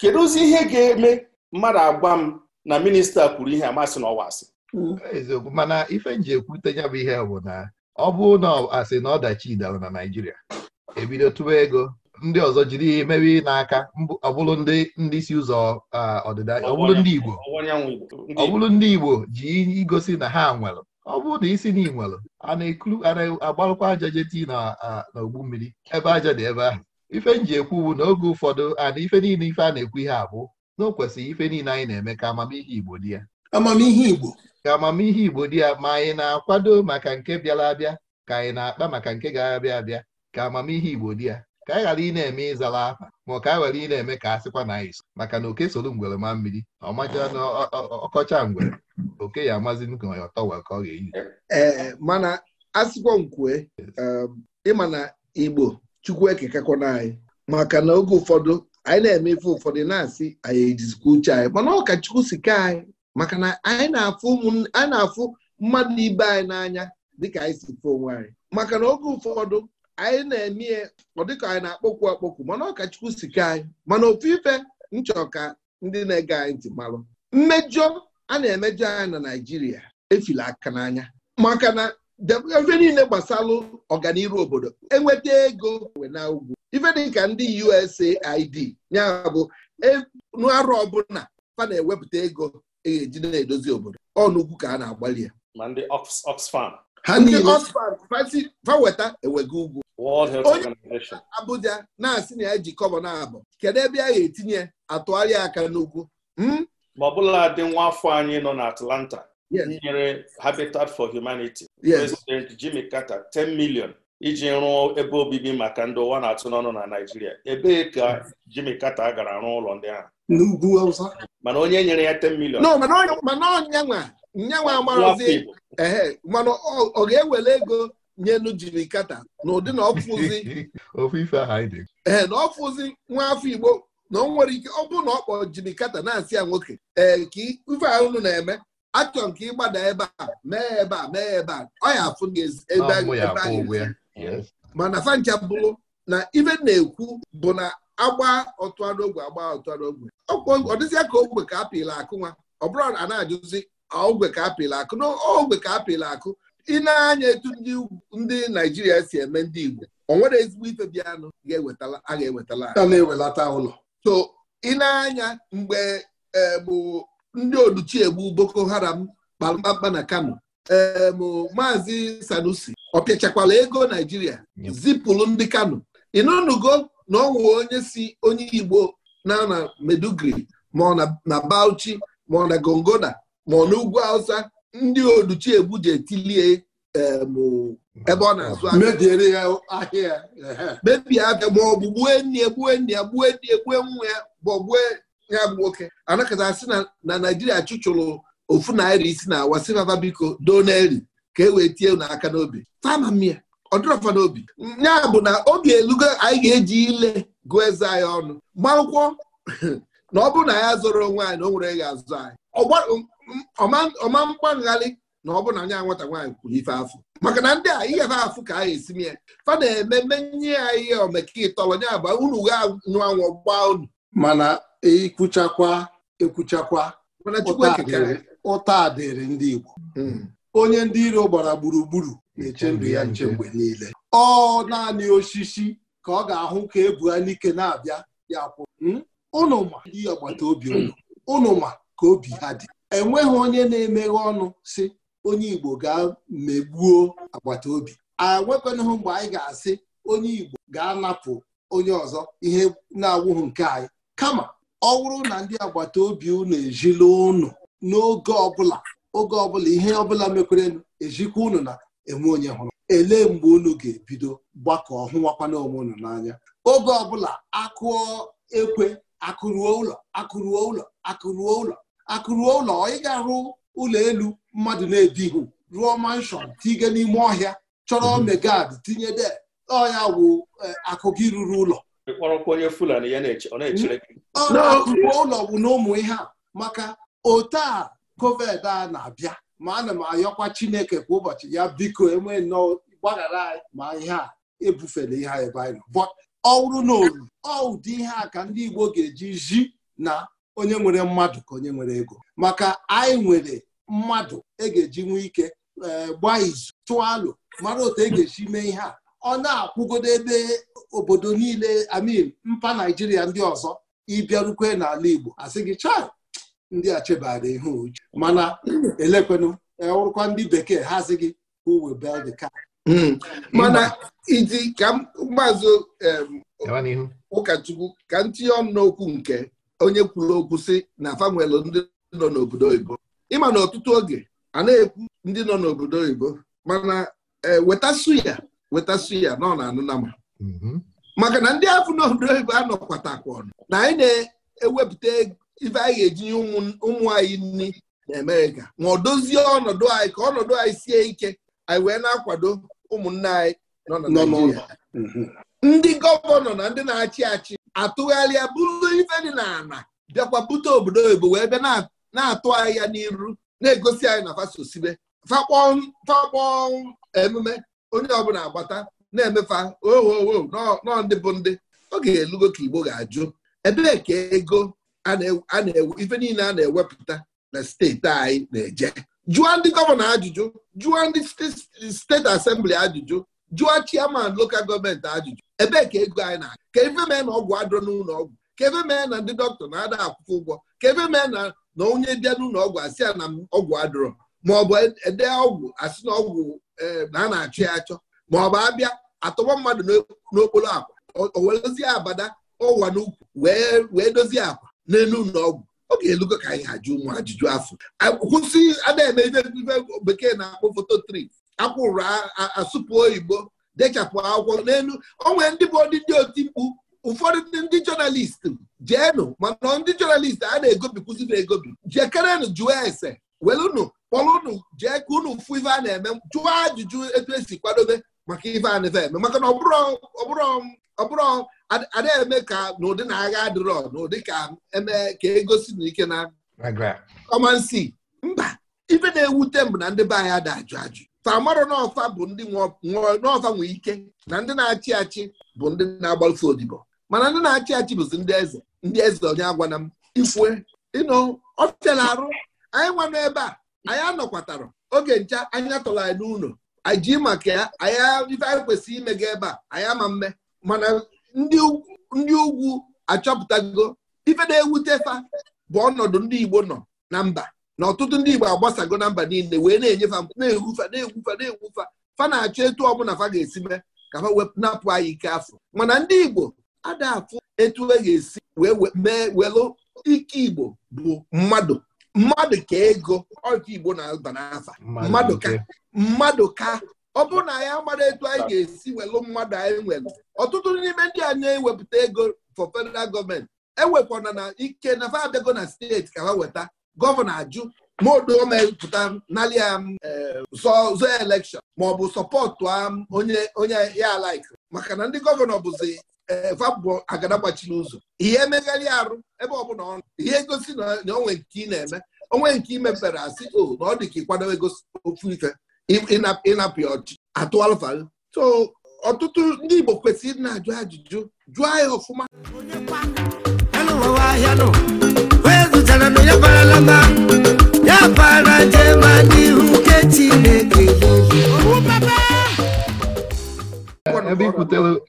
kedu ozi ihe ga-eme mmadụ agwa m na minista kwuru ihe amasị n'ọwa asị hmm. eziokwu mana ife nji ekwute ya bụ ihe bụ na ọ bụ na asị na ọdachi dara na Naịjirịa ebido tụwa ego ndị ọzọ jiri meri n'aka ọbụrụ ndị isi ụzọ ọdịda ọbụrụ ndị Igbo ọbụrụ ndị Igbo ji igosi na ha nwere ọ bụrụ na isi na inwelu a na-agbalụkwa aja jeti na ogbu mmiri ebe aja dị ebe ahụ ife nji ekwuwu na oge ụfọdụ ana ife niile ife a na-ekwu ihe abụ na o ife niile anyị na-eme ka amamihe Igbo dị ya amamihe Igbo ka amamihe Igbo dị ya ma anyị na-akwado maka nke bịara abịa ka anyị na-akpa maka nke ga-abịa abịa ka amamihe Igbo dị ya ka anyị ghara ị na-eme ịzala afa ma ọ ka anyị ghara ị na-eme ka a sịkwa na anyị maka na oke soro ngwere ma mmiri ọ macha na ọkọcha ngwere oke ya amazi nke ọtọ wee ka ọ ga-eyi ee mana asịkwa nkwue um, ịma na igbo chukwu ekekakwana anyị maka na oge ụfọdụ anyị na-eme ife ụfọdụ na-asị anyị ejizikwa uche anyị mana ọ ka chukwu si ka anyị maka na anyị na-afụ mmadụ ibe anyị n'anya dịka anyị si fụ onwe anyị maka na oge ụfọdụ anyị na-eme ọ dịka anyị na-akpọkwu akpọkwu mana ọkachukwu sike anyị mana ofu ife nchọ ka ndị na-ege anyị ntị malụ mmejọ a na-emejọ anyị na Naịjirịa efila aka n'anya maka na ife niile gbasalụ ọganiru obodo enweta ego wee na ugwu ife dịka ndị USAID ya bụ e, arụ ọbụla fa na-ewepụta ego eji na-edozi obodo ọnụugwu ka a na-agbalị ya ma ndị Oxfam ha niile fa weta ewega ugwu World Health Organization Abuja na-asị na ya ji kọbọ na-abụ kedu ebe a ga-etinye atụgharịa aka n'ugwu hmm? ma ọ bụla dị nwa afọ anyị nọ na Atlanta nyere Habitat for Humanity President Jimmy Carter 10 million iji rụọ ebe obibi maka ndị ụwa na-atụ n'ọnụ na Naijiria ebee ka Jimmy Carter gara rụọ ụlọ ndị ahụ n'ugwu Awụsa mana onye nyere ya 10 million mana ọ ga-ewere ego nyelu jiri kata na ụdị na ee na ọfụzi nwa afọ Igbo na ọ nwere ike ọ bụrụ na ọ kpọọ jiri kata na-asị ya nwoke ee ka ife na-eme achọ nke ịgbada ebe a mee ebe a mee ebe a ọ ya afụ ebe mana fancha bụrụ na ive na-ekwu bụ na agba ogwe agba ọtụanogwe ọ dịzịa ka ogwe ka apịla akụ nwa ọ bụrụ a na-ajụzi ogwe ka apịla akụ na ogwe ka apịla akụ ị na-anya etu ndị Naijiria si eme ndị Igbo o nwere ezigbo ife dị anụ a ga-ewetala na-ewelata ụlọ so ị na-anya mgbe e, bụ ndị oduchiegbu Boko Haram kpamkpamkpa na Kano ee maazị Sanusi ọ ego Naijiria Zipụlụ ndị Kano ị nụnụgo na ọ onye si onye Igbo na na Meduguri ma ọ na Bauchi ma ọ na Gongona ma ọ na ugwu Hausa ndị oduchiegbu ji etilie ebe ọ na-azụ ahịa mebie abịa ma ọ bụ gbue nne ya gbue nne ya egbue nwa ya bụ gbue ya bụ nwoke anakọta sị na naijiria chụchụrụ ofu naira isi na awa si baba biko doneri ka e wee tie n'aka n'obi tama m ya ọ n'obi ya bụ na oge elugo anyị ga-eji ile gụọ eze anyị ọnụ gba na ọ bụrụ na ya zụrụ nwaanyị anyị na o nwere ya azụ anyị ọma mgba na ọ bụ na anya nwata nwaanyị kwuru ife afọ maka na ndị a ihe ha afụ ka a esime ya fa na-ememe nye ya ihe omeka ịtọrọ nya aba unu gha anyụ anwụ gbaa unu mana ekwuchakwa ekwuchakwa ụta dịrị ndị Igbo hmm. onye ndị iro gbara gburugburu na-eche ndụ ya nche mgbe niile ọ naanị osisi ka ọ ga-ahụ ka n'ike na-abịa ya kwụ ụnụ hmm? ma ndị agbata obi ụnụ ụnụ ma ka obi ha dị enweghị onye na-emeghe ọnụ si onye Igbo gaa megbuo agbata obi enwekwanahụ mgbe anyị ga-asị onye Igbo ga-anapụ onye ọzọ ihe na-awụghị nke anyị kama ọ bụrụ na ndị agbata obi unu ejila unu n'oge ọbụla oge ọbụla ihe ọbụla mekwarenụ ejikwa unu na enwe onye hụrụ elee mgbe unu ga-ebido gbakọọ hụwakwana onwe unu n'anya oge ọbụla akụọ ekwe akụruo ụlọ akụruo ụlọ akụruo ụlọ akụruo ụlọ ị ga-arụ ụlọ elu mmadụ na-ebighị rụọ manshọn tige n'ime ọhịa chọrọ mhm. megad tinye de ọhịa wụ eh, akụ gị ruru ụlọ akụruo ụlọ bụ na ụmụ ihe a maka ote a covid a na-abịa ma ana m ayọkwa chineke kwa ụbọchị ya biko enwe nnọọ gbaghara anyị ma ihe a ebufela ihe anyị banyere ọ bụrụ na ọ ụdị ihe a ka ndị igbo ga-eji zi na onye nwere mmadụ ka onye nwere ego maka anyị nwere mmadụ e ga-eji nwee ike eh, gbaa izu tụọ alụ mara otu e ga-esi mee ihe a ọ na-akwụgodo ebe obodo niile amin mpa naijiria ndị ọzọ ịbịarukwe n'ala igbo asị gị cha ndị a chebara ihe uche mana elekwenụ ọrụkwa e, ndị bekee ha asị gị who will build hmm. mana hmm. iji ka maazị ụkọchukwu ka m ọnụ n'okwu nke onye kwuru okwu si na fanwelụ ndị nọ n'obodo oyibo ịma na ọtụtụ oge a na-ekwu ndị nọ n'obodo oyibo mana e, wetasu ya wetasu ya nọ na mhm. maka na ndị afọ n'obodo oyibo anọkwatakwa ọnụ na anyị na-ewepụta ife anyị ga-eji ụmụ anyị nri na Amerịka ma ọ dozie ọnọdụ anyị ka ọnọdụ anyị sie ike anyị wee na-akwado ụmụnne anyị nọ na mhm. ndị gọvanọ na ndị na-achị achị atụgharịa bụrụ ife dị n'ala bịakwa bute obodo oyibo wee bịa na-atụ ahịa n'iru na-egosi anyị na fasosibe fakpọ emume onye ọbụla agbata na-emefa ohowo oh, oh, oh, nọ ndị bụ ndị oge elugo ka igbo ga-ajụ ebee ka ego ife niile a na-ewepụta na steeti anyị na-eje jụọ ndị gọvanọ ajụjụ jụọ ndị steeti asembli ajụjụ jụọ chiaman lokal gọọmenti ajụjụ ebee ka ego anyị na ka ebe mee na ọgwụ adịrọ n'ụlọ ọgwụ ka ebe mee na ndị dọkịta na-ada akwụkwọ ụgwọ ka ebe mee na na onye bịa n'ụlọ ọgwụ asị ya na ọgwụ adịrọ maọbụ ede e ọgwụ asị na ọgwụ e, na a na-achọ ya achọ maọbụ abịa atọgbọ mmadụ n'okporo akwa dozie abada ụwa n'ukwu wee dozie akwa n'elu ụlọ ọgwụ ọ ga-elugo ka anyị ajụ ụmụ ajụjụ afọ kwụsị ada eme bekee na-akpọ foto tri akwụrụ asụpụ oyibo dechapụ akwụkwọ n'elu onwe ndị bụ ndị ndị oti mkpu ụfọdụ ndị jọnalist jeenụ mana ndị jọnalist a na-egobikwuzi na-egobi jekerenụ jụọ ese welụnụ kpọrụnụ jee ka unu fụ ife a na-eme jụọ ajụjụ etu esi kwadobe maka ife a na eme maka na ọbụrụ ada eme ka n'ụdị na agha adịrọ n'ụdị ka eme ka egosi na ike na kọmansi mba ife na-ewute m na ndị be anyị ada ajụ ajụ tamarọ n'ọfa bụ ndị n'ọfa nwee ike na ndị na-achị achị bụ ndị na-agbalụfe odibo mana ndị na-achị achị bụzi ndị eze ndị eze onye agwana m ifue ịnọ ọfịala arụ anyị nwa n'ebe a anyị anọkwatara oge ncha anyị atọrọ anyị n'ụlọ anyị maka ya anyị ife anyị kwesịrị ime ga ebe a anyị ama mme mana ndị ugwu achọpụtago ife na-ewute fa bụ ọnọdụ ndị Igbo nọ na mba na ọtụtụ ndị Igbo agbasago na mba niile wee na-enyefa na-egwufa na-egwufa na-egwufa fa na-achọ etu ọbụla fa ga-esi mee ka fa anyị ike afọ mana ndị Igbo adafụ etu e ga-esi wee mee welụ ike Igbo bụ mmadụ mmadụ ka ego ọka Igbo na-aba n'afa mmadụ ka mmadụ ka ọ bụrụ na anyị amara etu anyị ga-esi welụ mmadụ anyị nwere ọtụtụ n'ime ndị a na-ewepụta ego for federal gọọmenti ewekwana na ike na fa abịago na steeti ka ha weta gọvanọ ajụ ma odo mepụta nalia um, zọọ elekshọn maọbụ sọpọtụ um, onye ya laik maka na ndị gọvanọ bụzi eh, vabụ agada gbachiri ụzọ ihe emegharị arụ ebe ọbụla ọnụ ihe gosi na onwe nke ị na-eme onwe nke imepere mepere asị o na ọ dị ka kwado ego ofu ife ịnapụ ya ọchịchị atụ so ọtụtụ ndị Igbo kwesịrị ịdị na-ajụ ajụjụ jụọ ya ọfụma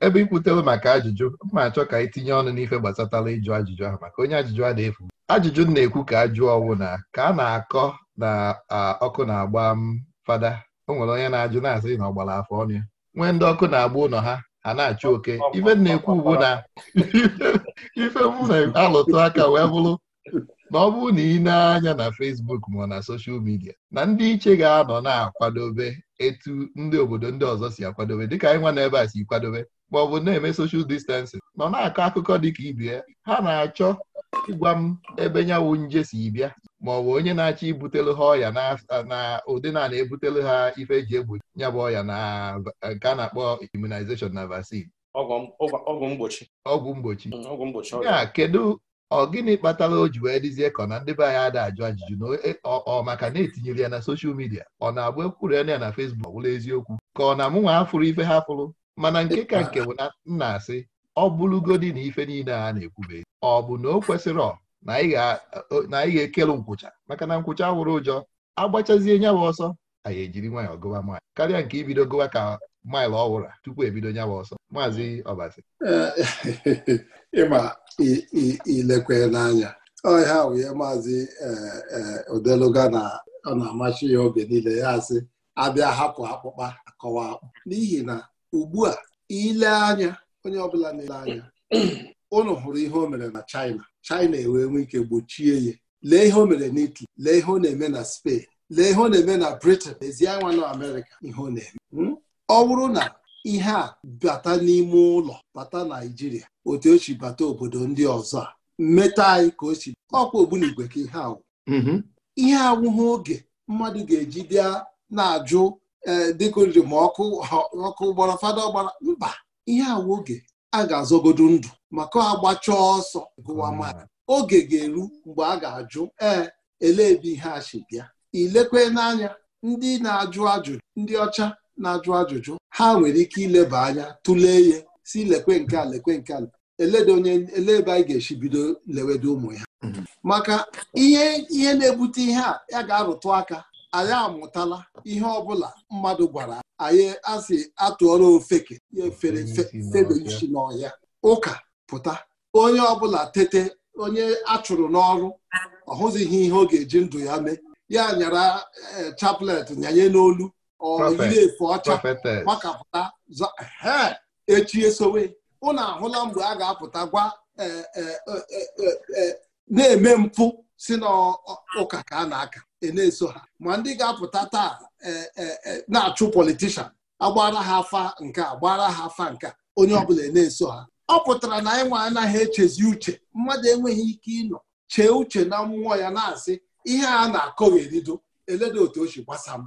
ebe ikwutere maka ajụjụ mma achọ ka anyị tinye ọnụ n'ife gbasatara ịjụ ajụjụ ahụ maka onye ajụjụ a na-efu ajụjụ na-ekwu ka ajụ ọnwụ na ka a na-akọ na ọkụ na-agba m fada o nwere onye na-ajụ na-asị na ọgbara afọ ọnụ ya nwee ndị ọkụ na-agba ụlọ ha ha na-achụ oke ife na-ekwu ugbu na ife m alụtụ aka wee bụrụ na ọ bụrụ na ị na-anya na Facebook ma na soshal midia na ndị iche ga-anọ na-akwadobe etu ndị obodo ndị ọzọ si akwadobe dịka anyị nwa n'ebe a si kwadobe ma ọ bụ na-eme soshal distansing nọ na-akọ akụkọ dịka ka ya ha na-achọ ịgwa m ebe nyanwụ nje si bịa ma ọ bụ onye na-achọ ibutelu ha ọya na ụdị na na-ebutelu ha ife eji egbochi nyabụ ọya na nke a na-akpọ immunization na vaccine ọgwụ mgbochi ya mm, kedu ọ gịnị kpatara o ji wee dịzie ka na ndị be anyị ada ajụ ajụjụ na e, ọ maka na etinyere ya na soshal midia ọ na-abụ ekwuru ya na fesbuk wụla eziokwu ka ọ na amụ nwa afụrụ ife ha fụrụ mana nke ka nke bụ na nna asị ọ bụrụgodi na ife niile a na-ekwube ọ bụ na o kwesịrị na ị ga-ekelu nkwụcha maka na nkwụcha wụrụ ụjọ agbachazie nyawa ọsọ anyị ejiri nwayọọ gụwa maịlụ karịa nke ibido gụwa ka maịlụ ọwụra tupu ebido nyawa ọsọ maazị ọbazi ilekwe n'anya ọhịa wee maazị e, e, odeluga na ọ na amachi ya oge niile ya asị abịa hapụ akpụkpa akọwa akpụ n'ihi na ugbu a ile anya onye ọbụla na-ele anya ụnụ hụrụ ihe o mere na China China ewee nwee ike gbochie ya lee ihe o mere n'Italy lee ihe ọ na-eme na Spain lee ihe ọ na-eme na Britain ezi nwa na Amerịka ihe ọ na-eme hmm? ọ bụrụ na ihe a bata n'ime ụlọ bata Naijiria otu o si bata obodo ndị ọzọ a mmetọ anyị ka o ọkwa ogbunigwe ka ihe awụ mm-hmm. ihe awụghị oge mmadụ ga-eji bịa na-ajụ e, dịkoriri ma ọkụ ọkụ gbara fada gbara mba ihe awụ oge a ga-azọgodo ndụ maka agbacha ọsọ gụwa mm-hmm. mmadụ oge ga-eru mgbe a ga-ajụ ee ele ebe ihe a si bịa ilekwe n'anya ndị na-ajụ ajụjụ ndị ọcha na-ajụ ajụjụ ha nwere ike ileba anya tụlee ihe si lekwe nke a lekwe nke ala eleda onye anyị ga-esi bido lewedo ụmụ ya mhm. maka ihe ihe na-ebute ihe a ya ga-arụtụ aka anyị amụtala ihe ọbụla mmadụ gwara anyị asị atụọrọ ofeke ya efere febeisi n'ọhịa ụka pụta onye ọbụla tete onye achụrụ n'ọrụ ọhụzighị ihe ọ ga-eji ndụ ya mee ya nyara eh, chaplet nyanye n'olu ọyiri efe ọcha gbakapụta echi esowe ụnụ ahụla mgbe a ga-apụta gwa e, e, e, na-eme mpụ si n'ụka ka a na-aka na-eso ha ma ndị ga-apụta taa na-achụ politishan agbara ha afa nke a gbara ha afa nke onye ọbụla ena eso ha ọ pụtara na anyị nwe anaghị echezi uche mmadụ enweghị ike ịnọ chee uche na mmụọ ya na-asị ihe a na-akọ erido eleda otu o si gbasa m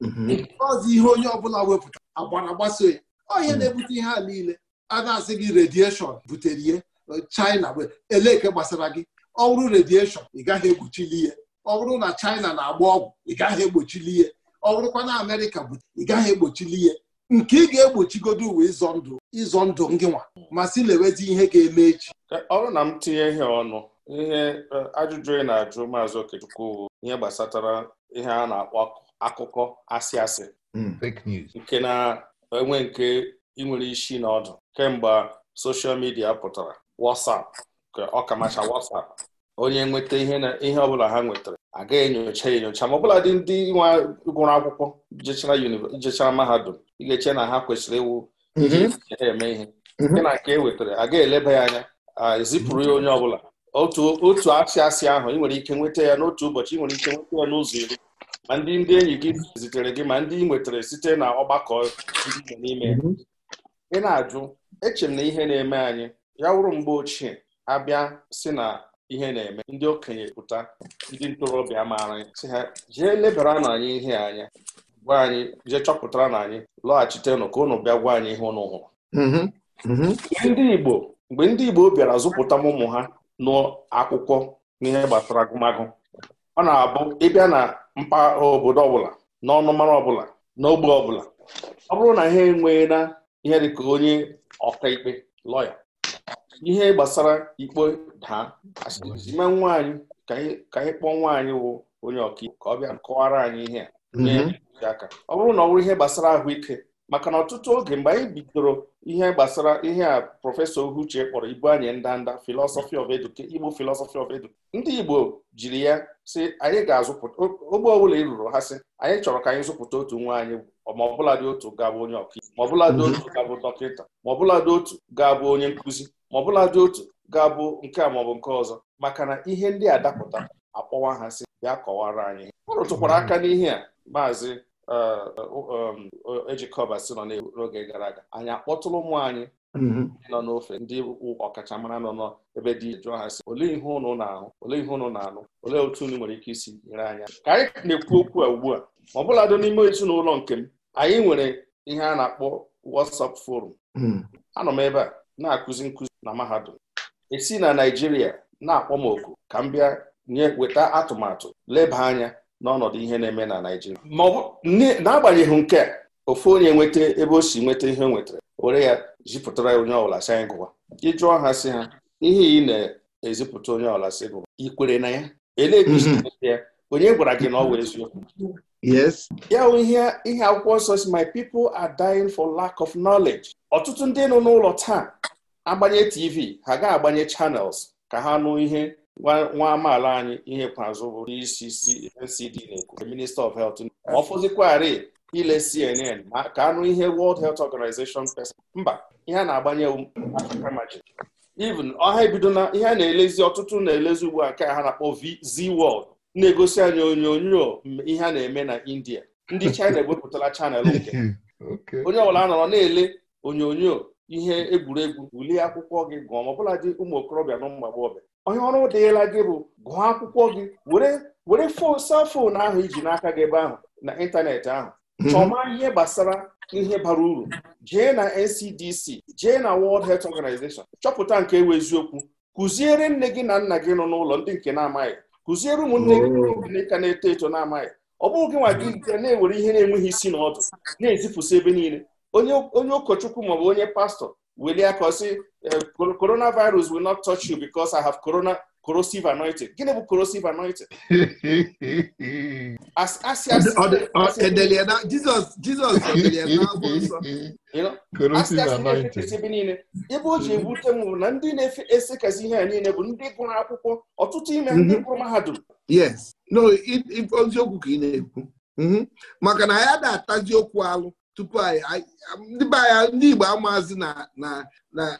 mhm. ọzọ ihe onye ọbụla wepụta agbara gbaso ya onye mhm. na-ebute ihe a niile a na-asị gị redieshọn butere ihe China eleke gbasara gị ọ redieshọn ị gaghị egbochili ihe ọ na China na-agba ọgwụ ị gaghị egbochili ihe ọ bụrụkwa na Amerịka butere ị gaghị egbochili ihe nke ị ga-egbochigodo uwe ịzọ ndụ ịzọ ndụ gị nwa ma si lewezi ihe ga-eme echi ọrụ na m tinye ihe ọnụ ihe ajụjụ ị na-ajụ maazị Okechukwu ihe gbasatara ihe a na-akpọ akụkọ asị asị hmm. nke na-enwe nke ịnwere isi na ọdụ kemgbe soshal midia pụtara WhatsApp ka ọkamacha WhatsApp onye nweta ihe ọbụla ha nwetara agaghị enyocha enyocha ma ọbụla dị ndị nwa gụrụ akwụkwọ jechara mahadum ị ga-eche na ha kwesịrị iwu mm-hmm. iji eme ihe mm-hmm. nke na nke e wetara agaghị eleba ya anya ezipụrụ ya onye ọbụla otu otu asị ahụ ị nwere ike nweta ya n'otu ụbọchị ị nwere ike nweta ya n'ụzọ iri ma ndị ndị enyi gị zitere gị ma ndị ị nwetara site na ọgbakọ n'ime mhm. ị na-ajụ eche m na ihe na-eme anyị ya wụrụ mgbe ochie abịa si na ihe na-eme ndị okenye pụta ndị ntorobịa maara si ha jee lebara na anyị ihe anya gwa anyị jee chọpụtara na anyị lọghachitenụ ka ụnụ bịa gwa anyị ihe ụnụ hụrụ mhm. Mhm. ndị Igbo mgbe ndị Igbo bịara zụpụta ụmụ ha nụọ akwụkwọ n'ihe gbasara agụmagụ ọ na-abụ ịbịa na mpaghara obodo ọbụla n'ọnụmara ọbụla n'ogbe ọbụla ọ bụrụ na ha enwee na ihe dịka onye ọkaikpe lọya ihe gbasara ikpe daa asịma nwaanyị ka anyị kpọọ nwaanyị wụ onye ọkaikpe ka ọ bịa kọwara anyị ihe a mm-hmm. aka ọ bụrụ na ọ bụrụ ihe gbasara ahụike maka na ọtụtụ oge mgbe anyị bidoro ihe gbasara ihe a prọfesọ ohuche kpọrọ ibu anyị ndanda filọsọfị of education Igbo philosophy of edu ndị Igbo jiri ya sị anyị ga-azụpụta ogbe ọbụla ị rụrụ ha sị anyị chọrọ ka anyị zụpụta otu nwa anyị ma ọbụla dị otu ga-abụ onye ọkaiwu ma ọbụla dị mhm. otu ga-abụ dọkịta ma ọbụla dị otu ga-abụ onye nkụzi ma ọbụla dị otu ga-abụ nke a maọbụ nke ọzọ maka na ihe ndị a dapụta akpọwa ha sị bịa kọwara anyị ọ rụtụkwara aka n'ihe a maazị eji e, e, si nọ n'oge gara aga anyị akpọtụrụ ụmụ anyị ndị mhm. nọ n'ofe ndị ọkachamara nọ n'ebe dị jụọ ha si olee ihe ụnụ na-ahụ olee ihe ụnụ na-anụ olee otu unu nwere ike isi nyere anya ka anyị na-ekwu okwu a ugbu a ma ọ bụladị n'ime ezinụlọ nke m anyị nwere ihe a na-akpọ WhatsApp forum mhm. anọ m ebe a na-akụzi nkụzi na mahadum esi na Naịjirịa na-akpọ m oku ka m bịa nye weta atụmatụ leba anya n'ọnọdụ ihe na-eme na Naijiria. ma n'agbanyeghị nke a ofu onye nweta ebe o si nweta ihe o nwetara were ya zipụtara ya onye ọbụla si anyị gụwa ịjụọ ha sị ha ihe ị na-ezipụta onye ọbụla si gụwa ikwere na ya e mhm. ya onye gwara gị na ọ wee eziokwu ya bụ ihe akwụkwọ nsọ si my people are dying for lack of knowledge ọtụtụ ndị nọ n'ụlọ taa agbanye tv ha ga-agbanye channels ka ha nụ ihe nwa amaala anyị ihe kwazụ bụ isi CNCD na-ekwu Minister of helt ọ fụzikwarị ile CNN ma ka anụ ihe World Health Organization pesa mba ihe a na-agbanye atakamaji even ọha ebido na ihe a na-elezi ọtụtụ na-elezi ugbu a nke a ha na-akpọ VZ World na-egosi anyị onyonyo ihe a na-eme na India ndị China ewepụtala chanel nke onye ọbụla nọrọ na-ele onyonyo ihe egwuregwu wulie akwụkwọ gị gụọ ma ọbụla dị ụmụ okorobịa na ụmụ agbọghọbịa onye ọrụ deela gị bụ gụọ akwụkwọ gị were were safon ahụ iji n'aka gị ebe ahụ na ịntanetị ahụ mhm. chọma ihe gbasara ihe bara uru jee na NCDC jee na World Health Organization chọpụta nke ewu eziokwu kụziere nne gị na nna gị nọ n'ụlọ ndị nke na-amaghị kụziere ụmụnne gị ndị ka na-eto eto na-amaghị ọ bụghị gị nwa gị nke na-ewere ihe na-enweghị isi na ọdụ na-ezipụsị ebe niile onye ụkọchukwu maọbụ onye pastọ welie aka ọsị coronavirus will not touch you because I have corona corrosive anointing gịnị bụ corrosive anointing asị asị niile ebe o ji ebute m na ndị na ese kazi ihe a niile bụ ndị gụrụ akwụkwọ ọtụtụ ime ndị mhm. gụrụ mahadum yes no oziokwu ka ị na-ekwu mhm. maka na ya na atazi okwu alụ tupu ndị be anyị ndị Igbo amaazị na na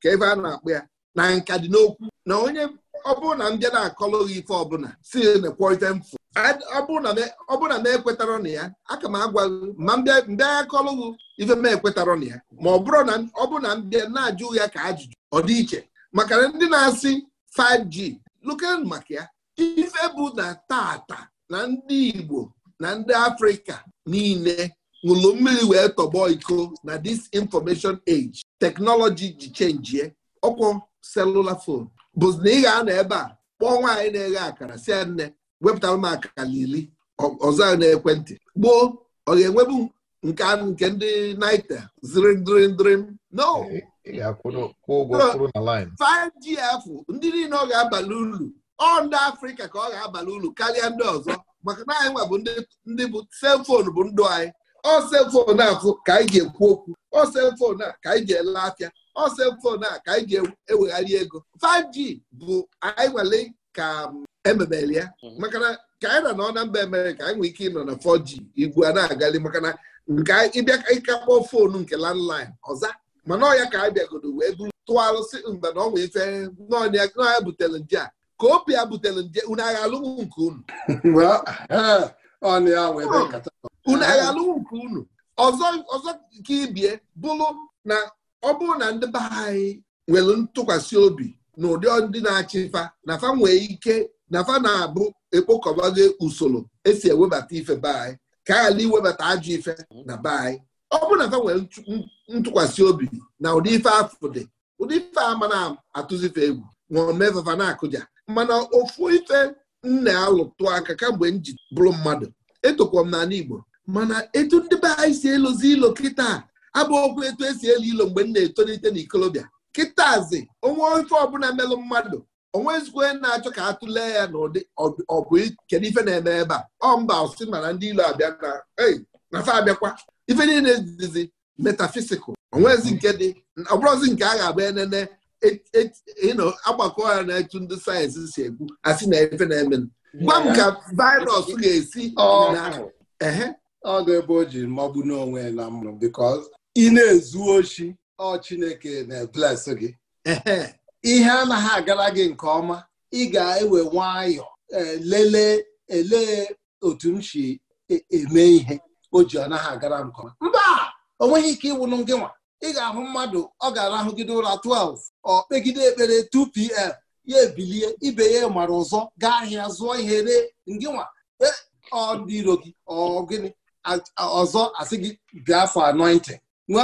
ka ebe a na akpụ ya na nka dị n'okwu na onye ọ bụrụ na m na-akọlụ ife ọbụla si na-ekwọrịta mfu ọ bụrụ m ekwetara na ya aka m agwa gị ma mbịa ya kọlụ ife m ekwetara na ya ma ọ bụrụ na ọ bụrụ na m na-ajụ ya ka ajụjụ ọ dị iche maka ndị na-asị 5G luken maka ya ife bụ na tata na ndị Igbo na ndị Afrịka niile ṅụlụ mmiri wee tọgbọ iko na this information age teknọlọji ji chenjie ọkwọ selula fon bụzi na ị ga-anọ ebe a kpọọ nwaanyị na-eghe akara si nne wepụtara m akara iri ọzọ na-ekwentị gboo ọ ga-enwebu nke ndị naita zirindrindrim no 5gf ndị niile ọ ga-abalị ulu ọ ndị afrịka ka ọ ga-abalị ulu karịa ndị ọzọ maka na anyị nwa bụ ndị bụ selfon bụ ndụ anyị ọselfon afụ ka anyị ga-ekwu okwu ọselfon a ka anyị ga-ele afịa ọselfon a ka anyị ga-ewegharị ego 5G bụ anyị nwere ka ememere um, ya mhm. maka na ka anyị na ọ na mba ka anyị nwere ike ịnọ na 4G igwe a na-agali maka na nke ịbịa ịka kpọọ foonu nke landline ọza mana ọya ka anyị bịagodo wee buru alụsị mgbe na ọ nwee ife n'ọnya butere nje a ka obi ya butere nje unu agha alụmụ nke unu ọnụ ya wee be unu ayalụ nke unu ọzọ ọzọ ibie bụrụ na ọ bụrụ na ndị be anyị nwere ntụkwasị obi na ụdị ndị na-achịfa na fa nwee ike na fa na-abụ ekpokọbago usoro esi ewebata ife be anyị ka a iwebata ajọ ife na be anyị ọ bụrụ na fa nwere ntụkwasị obi na ụdị ife afụ dị ụdị ife ama na-atụzife egwu ma fafa na-akụja mana ofu ife m na-alụtụ aka kamgbe m ji bụrụ mmadụ etokwa m n'ala Igbo mana etu ndị be anyị si elozi ilo kịta abụ etu esi elu ilo mgbe m na-etolite n'ikolobịa kịtazi onwe ofe ọbụla melụ mmadụ onwe onwezikwe na-achọ ka a tụlee ya n'ụdị ọ bụ kedu ife na-eme ebe a ọ mba ọsị mana ndị ilo abịa na fa abịakwa ife niile dizi metafisikal onwezi nke dị ọbụrụzi nke a ga-agba enene agbakọ ya na etu ndị sayensị si ekwu asị na efe na-eme gwa m ka virus ga-esi ọ ga-ebe o ji mmọgbu n'onwe na mụ because ị na-ezu ochi ọ Chineke na-ebles gị ihe anaghị agara gị nke ọma ị ga-ewe nwayọọ e, lelee elee otu m si e, eme ihe o ji ọ naghị agara m nke ọma mba o nweghị ike ịwụnụ gị nwa ị ga-ahụ mmadụ ọ ga-arahụgide ụra 12 ọ kpegide ekpere 2pm ya ebilie ibe ya mara ọzọ gaa ahịa zụọ ihe ree ngịnwa e, ọ iro gị ọ gịnị ọzọ asị gị bịa afọ nwa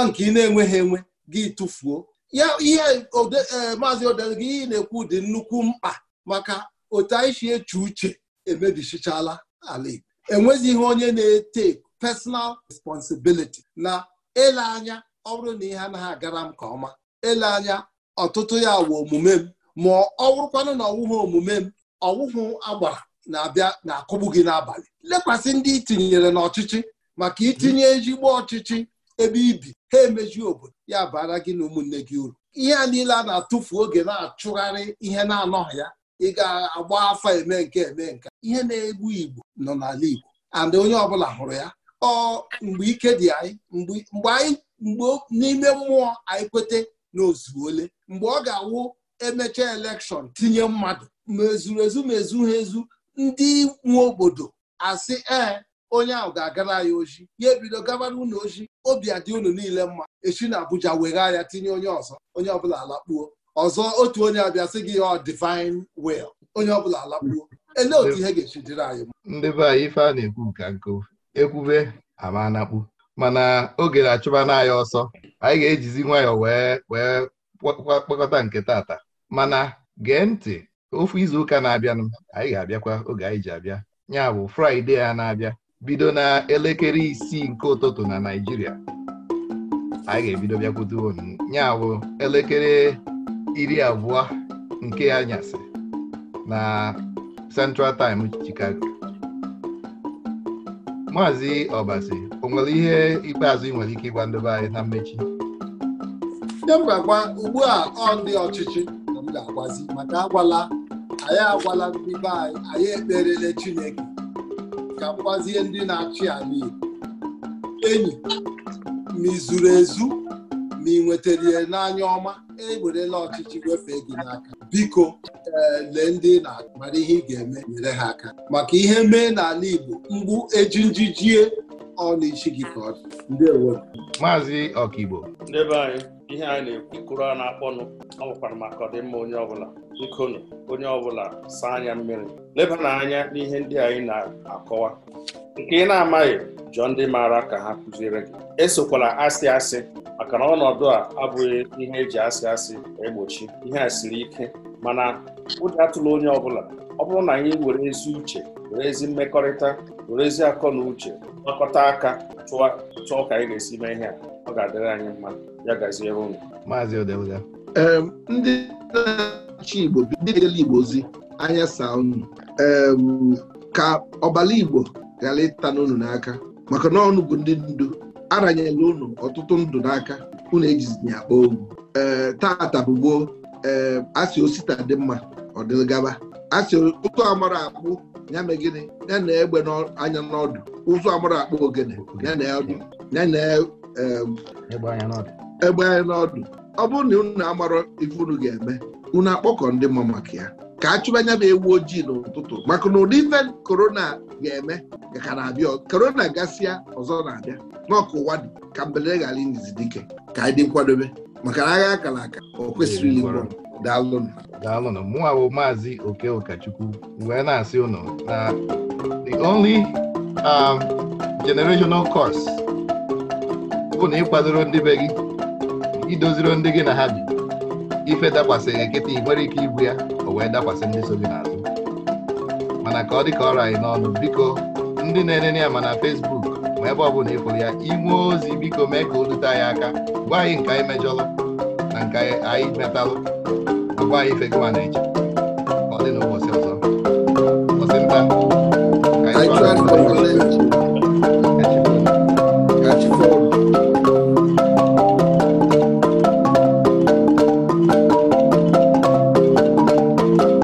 nke ị na-enweghị enwe gị tụfuo ya ihe e, maazị odere gị ihe na-ekwu dị nnukwu mkpa maka otu anyị si eche uche emebichichala ala Igbo enwezighị onye na-ete personal responsibility na ele anya ọ bụrụ na ihe anaghị agara m nke ọma ele anya ọtụtụ ya wụ omume m ma ọ bụrụkwanụ na ọwụghị omume m ọwụhụ agbara na-abịa na-akụgbu gị n'abalị lekwasị ndị itinyere n'ọchịchị maka itinye ezigbo ọchịchị ebe ibi ha emeji obodo ya bara gị na ụmụnne gị uru ihe a niile a na-atụfu oge na-achụgharị ihe na-anọghị ya ị ga-agba afa eme nke eme nke ihe na-egbu Igbo nọ n'ala Igbo and onye ọbụla hụrụ ya ọ mgbe ike dị anyị mgbe anyị mgbe n'ime mmụọ anyị kwete na ole mgbe ọ ga-awụ emecha elekshọn tinye mmadụ ma ezuru ezu ma ezu ha ezu ndị nwe obodo asị ee onye ahụ ga-agara ya oji ya ebido gabara unu oji obi adị unu niile mma echi na Abuja weghaa ya tinye onye ọzọ onye ọbụla alakpuo ọzọ otu onye abịa sị gị ọ divin will onye ọbụla alakpuo elee otu ihe ga-echi dịrị anyị ndị be anyị ife a na-ekwu ka nkụ ekwube ama anakpu mana oge na-achụba n'anya ọsọ anyị ga-ejizi nwayọọ wee wee kpọkọta nke tata mana gee ntị ofu izuụka na-abịanụ anyị ga-abịakwa oge anyị ji abịa ya bụ fraịde a na-abịa bido na elekere isii nke ụtụtụ na naijiria anyị ga-ebido bịakwute unu ya bụ elekere iri abụọ nke anyasị na Central Time Chicago maazị ọbasi o nwere ihe ikpeazụ ị nwere ike ịgwa ndị anyị na mmechi ndị ugbu a ọ ndị ọchịchị na m ga-agwazi maka agwala anyị agwala ndị be anyị anyị ekperele chineke ka mgbazie ndị na-achị ala enyi ma ị zuru ezu ma ị nwetara n'anya ọma ewerela ọchịchị wefee gị n'aka biko eh, lee ndị na-mara ihe ị ga-eme nyere ha aka maka ihe mee n'ala Igbo mgbu eji njijie ọ na-echi gị ka ọ dị ndewo maazị ọkaigbo ihe anyị na-ekwukuru a na-akpọnụ ọ bụkwara maka ọdịmma onye ọbụla bikonụ onye ọbụla saa anya mmiri leba n'anya n'ihe ndị anyị na-akọwa nke ị na-amaghị jụọ ndị maara ka ha kụziere gị esokwala asị asị maka na ọnọdụ a abụghị ihe eji asị asị egbochi ihe a siri ike mana ụjọ atụla onye ọbụla ọ bụrụ na anyị were ezi uche were ezi mmekọrịta were ezi akọ na uche gbakọta aka chụọ ka anyị ga-esi mee ihe a ọ ga-adịrị anyị mma ya gaziere ụnụ. maazị Odeluga ee ndị na-achị Igbo ndị Igbo ozi anya saa unu ee ka ọbala Igbo ghara ịta n'unu n'aka maka na ọnụ bụ ndị ndu aranyela unu ọtụtụ ndụ n'aka unu ejizi ya akpọ ohu ee tata asị osita dị mma ọ dịgaba asị ụtụ amara akpụ ya na gịnị ya na egbe anya n'ọdụ ụzọ amụrụ akpa ogene ya na ọdụ ya na egbe anya n'ọdụ ọ bụrụ na unu amarọ ife unu ga-eme unu akpọkọ ndị mma maka ya ka a chụba anya bụ ewu ojii n'ụtụtụ maka na ụdị ife korona ga-eme ka na-abịa korona gasịa ọzọ na-abịa n'ọkụ ụwa dị ka mbelere ghara indizi dike ka anyị dị nkwadobe maka na agha akara aka o kwesịrị ili daalụnụ daalụnụ mụnwa bụ maazị oke wee na-asị ụnụ na the only um, generational curse bụ na ịkwadoro ndị be gị idoziro ndị gị na ha bi ife dakwasịghị nkịta ị nwere ike ibu ya o wee dakwasị ndị so gị n'azụ mana ka ọ dị ka ọrụ anyị n'ọnụ biko ndị na-enene ya ma na Facebook ma ebe ọ bụla ịfụrụ ya inwe ozi biko mee ka o dute anyị aka gwa anyị nke anyị mejọlụ na nke anyị metalụ Ọ gwaghị ife gị ma na-eche